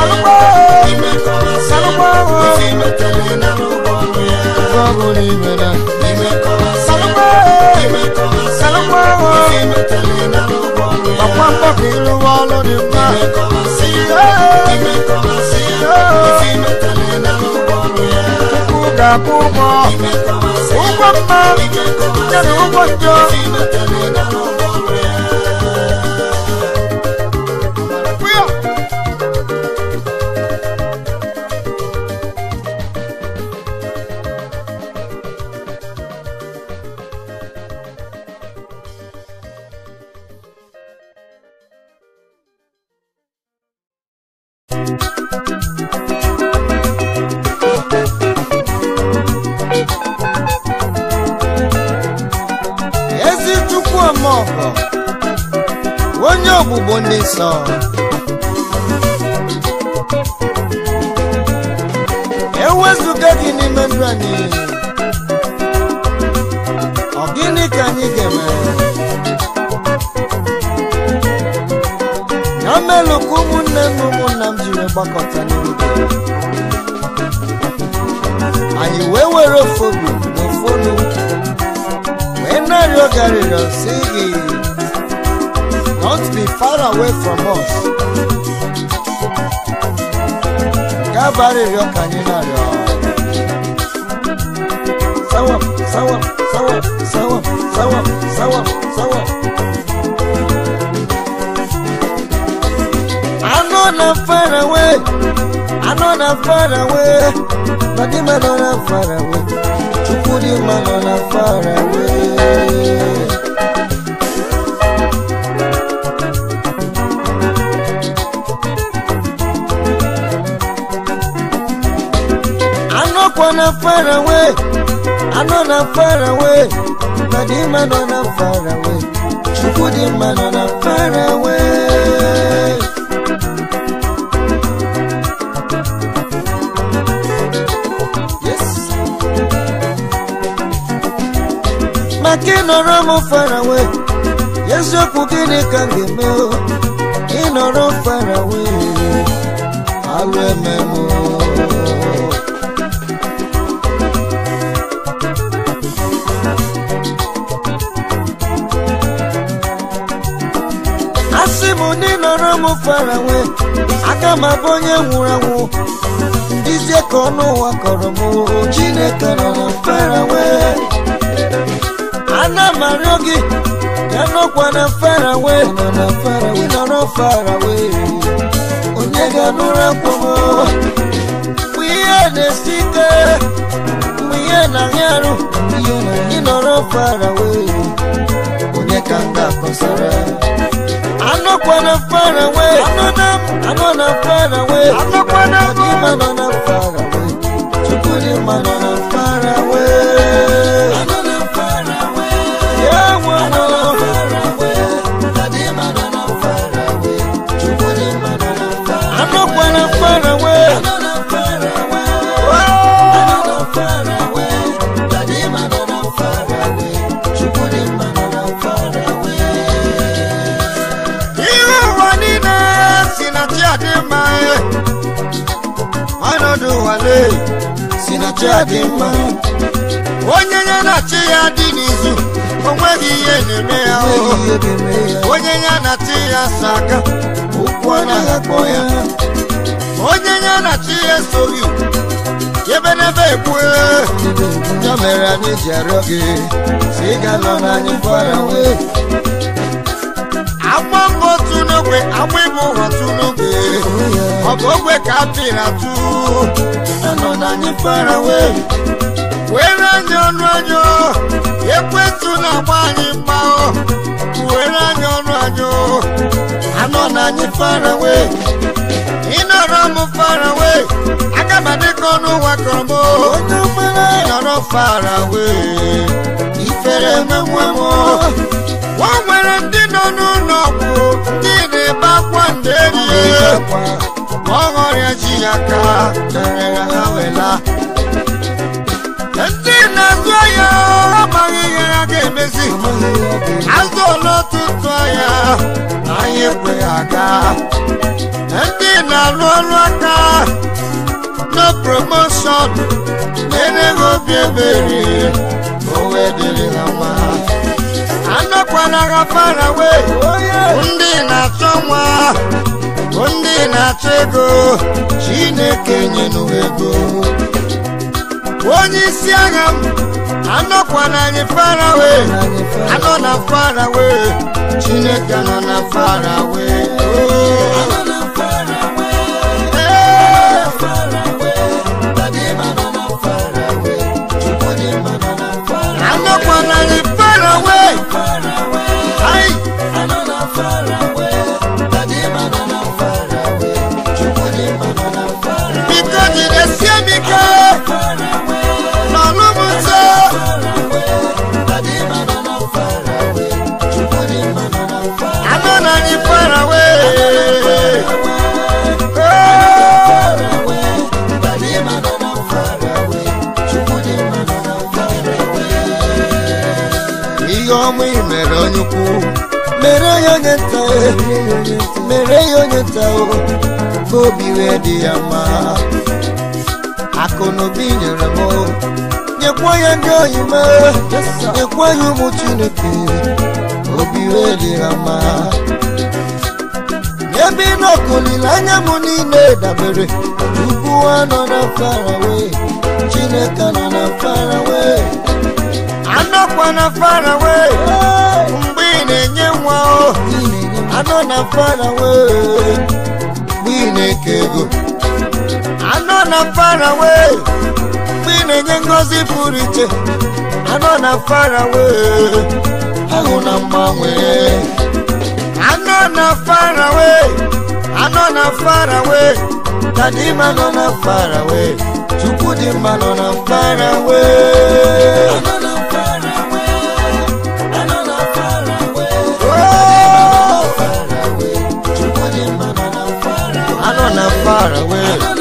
S1: salụgbọ salụgbọ ọkwa mgbakọ ịrụwa ọrụ Kumo, Kumo, Kumo, Kumo, Kumo, Kumo, Don't be far away from us. Gábàárì rẹ̀ ọkà nínú rẹ̀ ọ̀. Sáwọ̀ sáwọ̀ sáwọ̀ sáwọ̀ sáwọ̀ sáwọ̀ sáwọ̀. Àná na far away, I know na far away, Bàdí mà nọ na far away, Chukwu di mà nọ na far away. know not far away. I know not far away. Nadima know not far away. Shukudima know not far away. Yes. Makino Ramo far away. Yes, you Pukini can give me. Inoro far away. I'll remember. m ndị nọrọ m farawe aka m abụ onye nwụrụ anwụ izie ka ọnụ ụwa kọrọ m Chineke nọ na farawe ana m arịọ gị ya nọkwa na na farawe ịnọrọ farawe onye ga-anụrụ akpọ m mgbe ihe na-esi ike mgbe ihe na-ahịa arụ ịnọrọ farawe onye ka m ga-akọsara I'm not gonna run away. I'm not going I'm not away. I'm not gonna far away. I'm not gonna far away. ife si na chi adị mma onye ya na chi ya dị n'izu onweghị ihe na-eme ya onye ya na chi ya sa aka ụkwụ anaghị akpọ ya onye ya na chi ya esoghị ebe n'ebe ekwu ya mere anyị ji arịọ gị si ịga nọ n'anyị fara wee agba mbọ otu n'ogbe agba ịbụ ụwa kapịrị atụ anọ na anyị fara were anya ọnụ ọjọọ! ekwentụ na-agba anyị mma were anya ọrụ anyị anọ na anyị fara wee ịnọrọ m fara wee aga ka kọrọ fara ifere m nwere ndị nọ n'ụlọ ọgwụ na-ebe akwa ndị ọghọrịa ji aka merere ha wela ndị na-azụ ahịa amaghị ihe ha ga-emezi azụ n'ọtụtụ ahịa anyị ekwe aga ndị na-alụ ọrụ aka na promoshọn na-enweghị obi ebere owe dịrị ha mma anọkwala ha far away ndị na-achọ nwa bụ ndị na-achọ ego chineke nyenu ego onye isi agha m anọkwa na anyị farawe anọ na farawe chineke nọ na farawe mere onye ukwu mere ya onye nta mere ya onye nta ka obi wee dị ya mma akụ na obi nyere m nyekwa ya ndị oyi ma nyekwa ya ụmụ chineke obi wee dị ya mma ebe n'ọkụ anya m niile dabere ugbu a nọ na farawe chineke nọ na farawe anọkwa na faraway mgbe ị na-enye nwa o anọ na faraway mgbe ị na-eke ego anọ na faraway mgbe ị na-enye ngozi pụrụ iche anọ na faraway ahụ na mgbanwe anọ na faraway anọ na faraway kadima nọ na faraway chukwu dị mma nọ na faraway far away.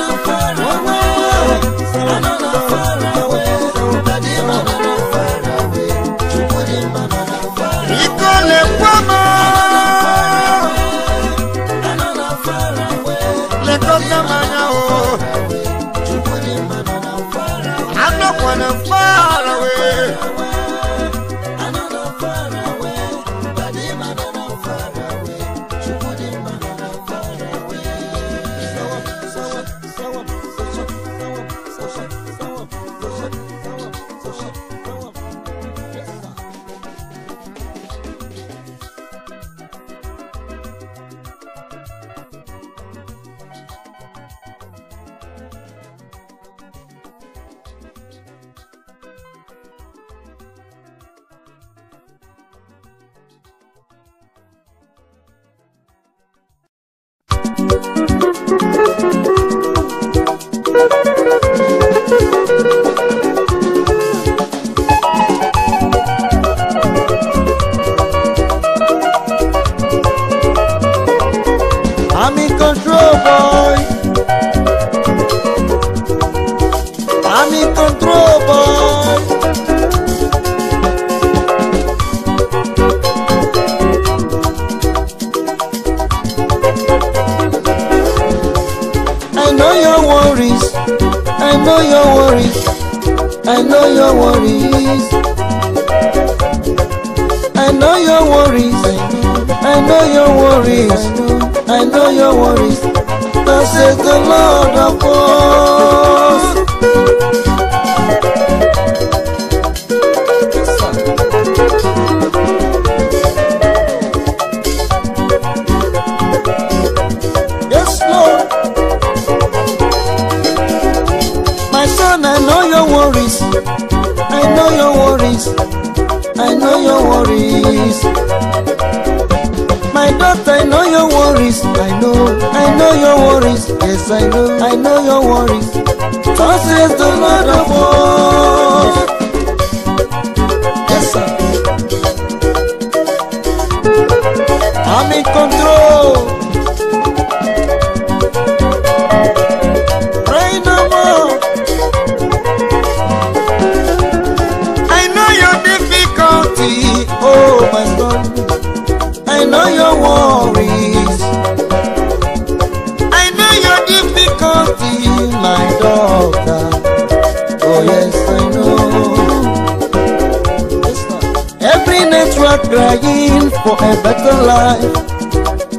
S1: life.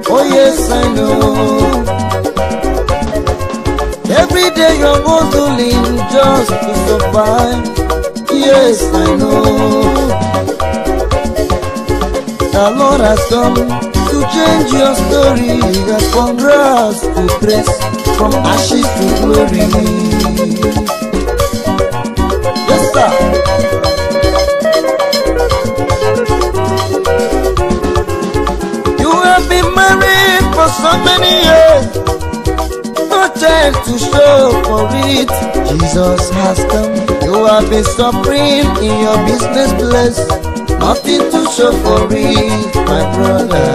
S1: Oh, yes, I know. Every day you're going to live just to survive. Yes, I know. The Lord has come to change your story. That from grass to grace, from ashes to glory. Yes, sir. so many years. No time to show for it. Jesus has come. You have been suffering in your business place. Nothing to show for it, my brother.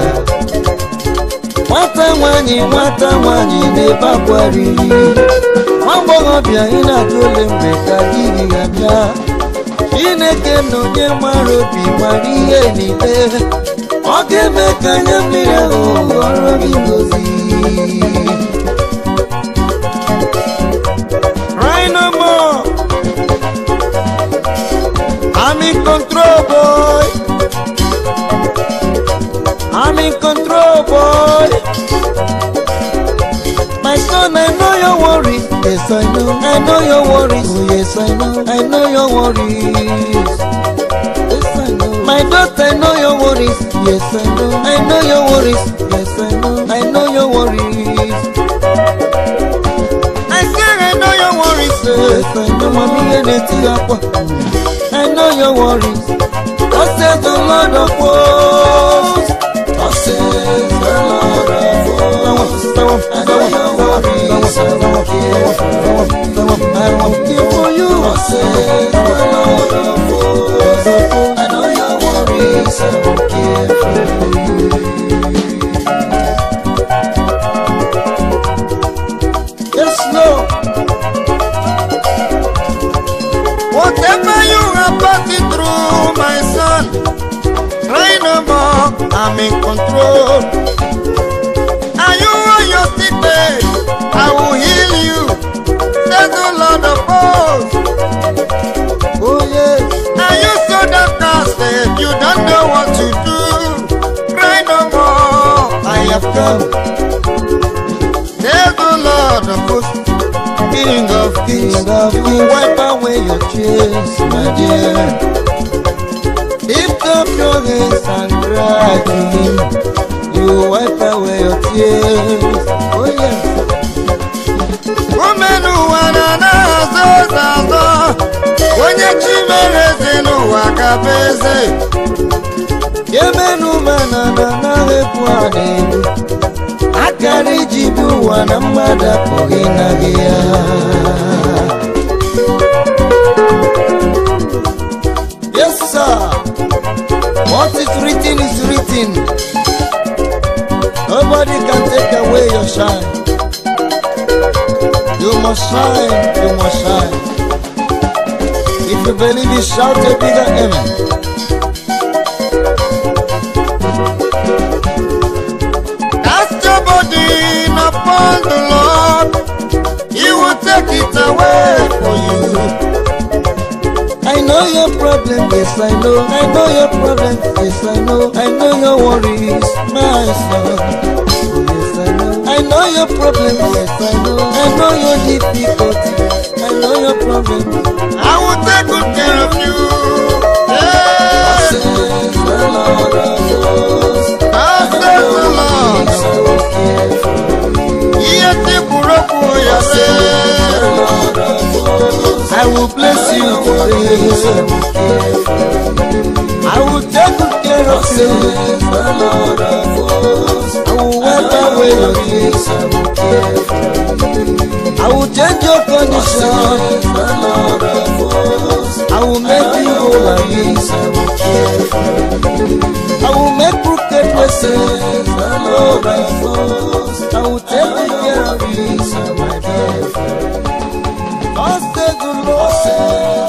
S1: Nwata nwaanyị nwata nwaanyị na-ebe akwa riri. Nwa agbọghọbịa ị na-ajụ ole mgbe ka di gị ga-abịa. Chineke na onye nwere obi nwere ọ ga-eme ka anya mmiri ahụ ghọrọ gị ngozi I'm in control boy I'm in control boy I know, I know your worry. Yes, I know. I know your worries. Oh, yes, I know. I know your worries. Yes, I know. My daughter, I know your worries. Yes, I know. I know your worries. Yes, I know. I know your worries. I say, I know your worries. Yes, I know. Mommy, and it's I know your worries. I said the Lord of hosts. I know your worries, I won't care for you. I'm in control. Are you on your sick bed? I will heal you. Says the Lord of hosts. Oh yes. Are you so downcasted? You don't know what to do. Cry no more. I have come. Says the Lord of hosts. King of kings, you of wipe away your tears, my dear. promise and tragedy. You onye chi mere n'ụwa ka eze. Yemenu na Akara iji ụwa na mmadụ apụghị na ya. What is written is written. Nobody can take away your shine. You must shine, you must shine. If you believe it, shout a bigger amen. Upon the Lord, He will take it away for you. I know your problem, yes I know. I know your problem, yes I know. I know your worries, my son. Yes I know. I know your problem, yes I know. I know your difficulty. I know your problem. I will take good care of you. Yeah. Says the Lord of hosts. I says the Lord of hosts mighty Buroku Oyase. I will bless you today. I will take good care of you. I will wipe away your tears. I will change your condition. I will make you will I I will make crooked myself, and I will take care of you, my dear Cause the Lord.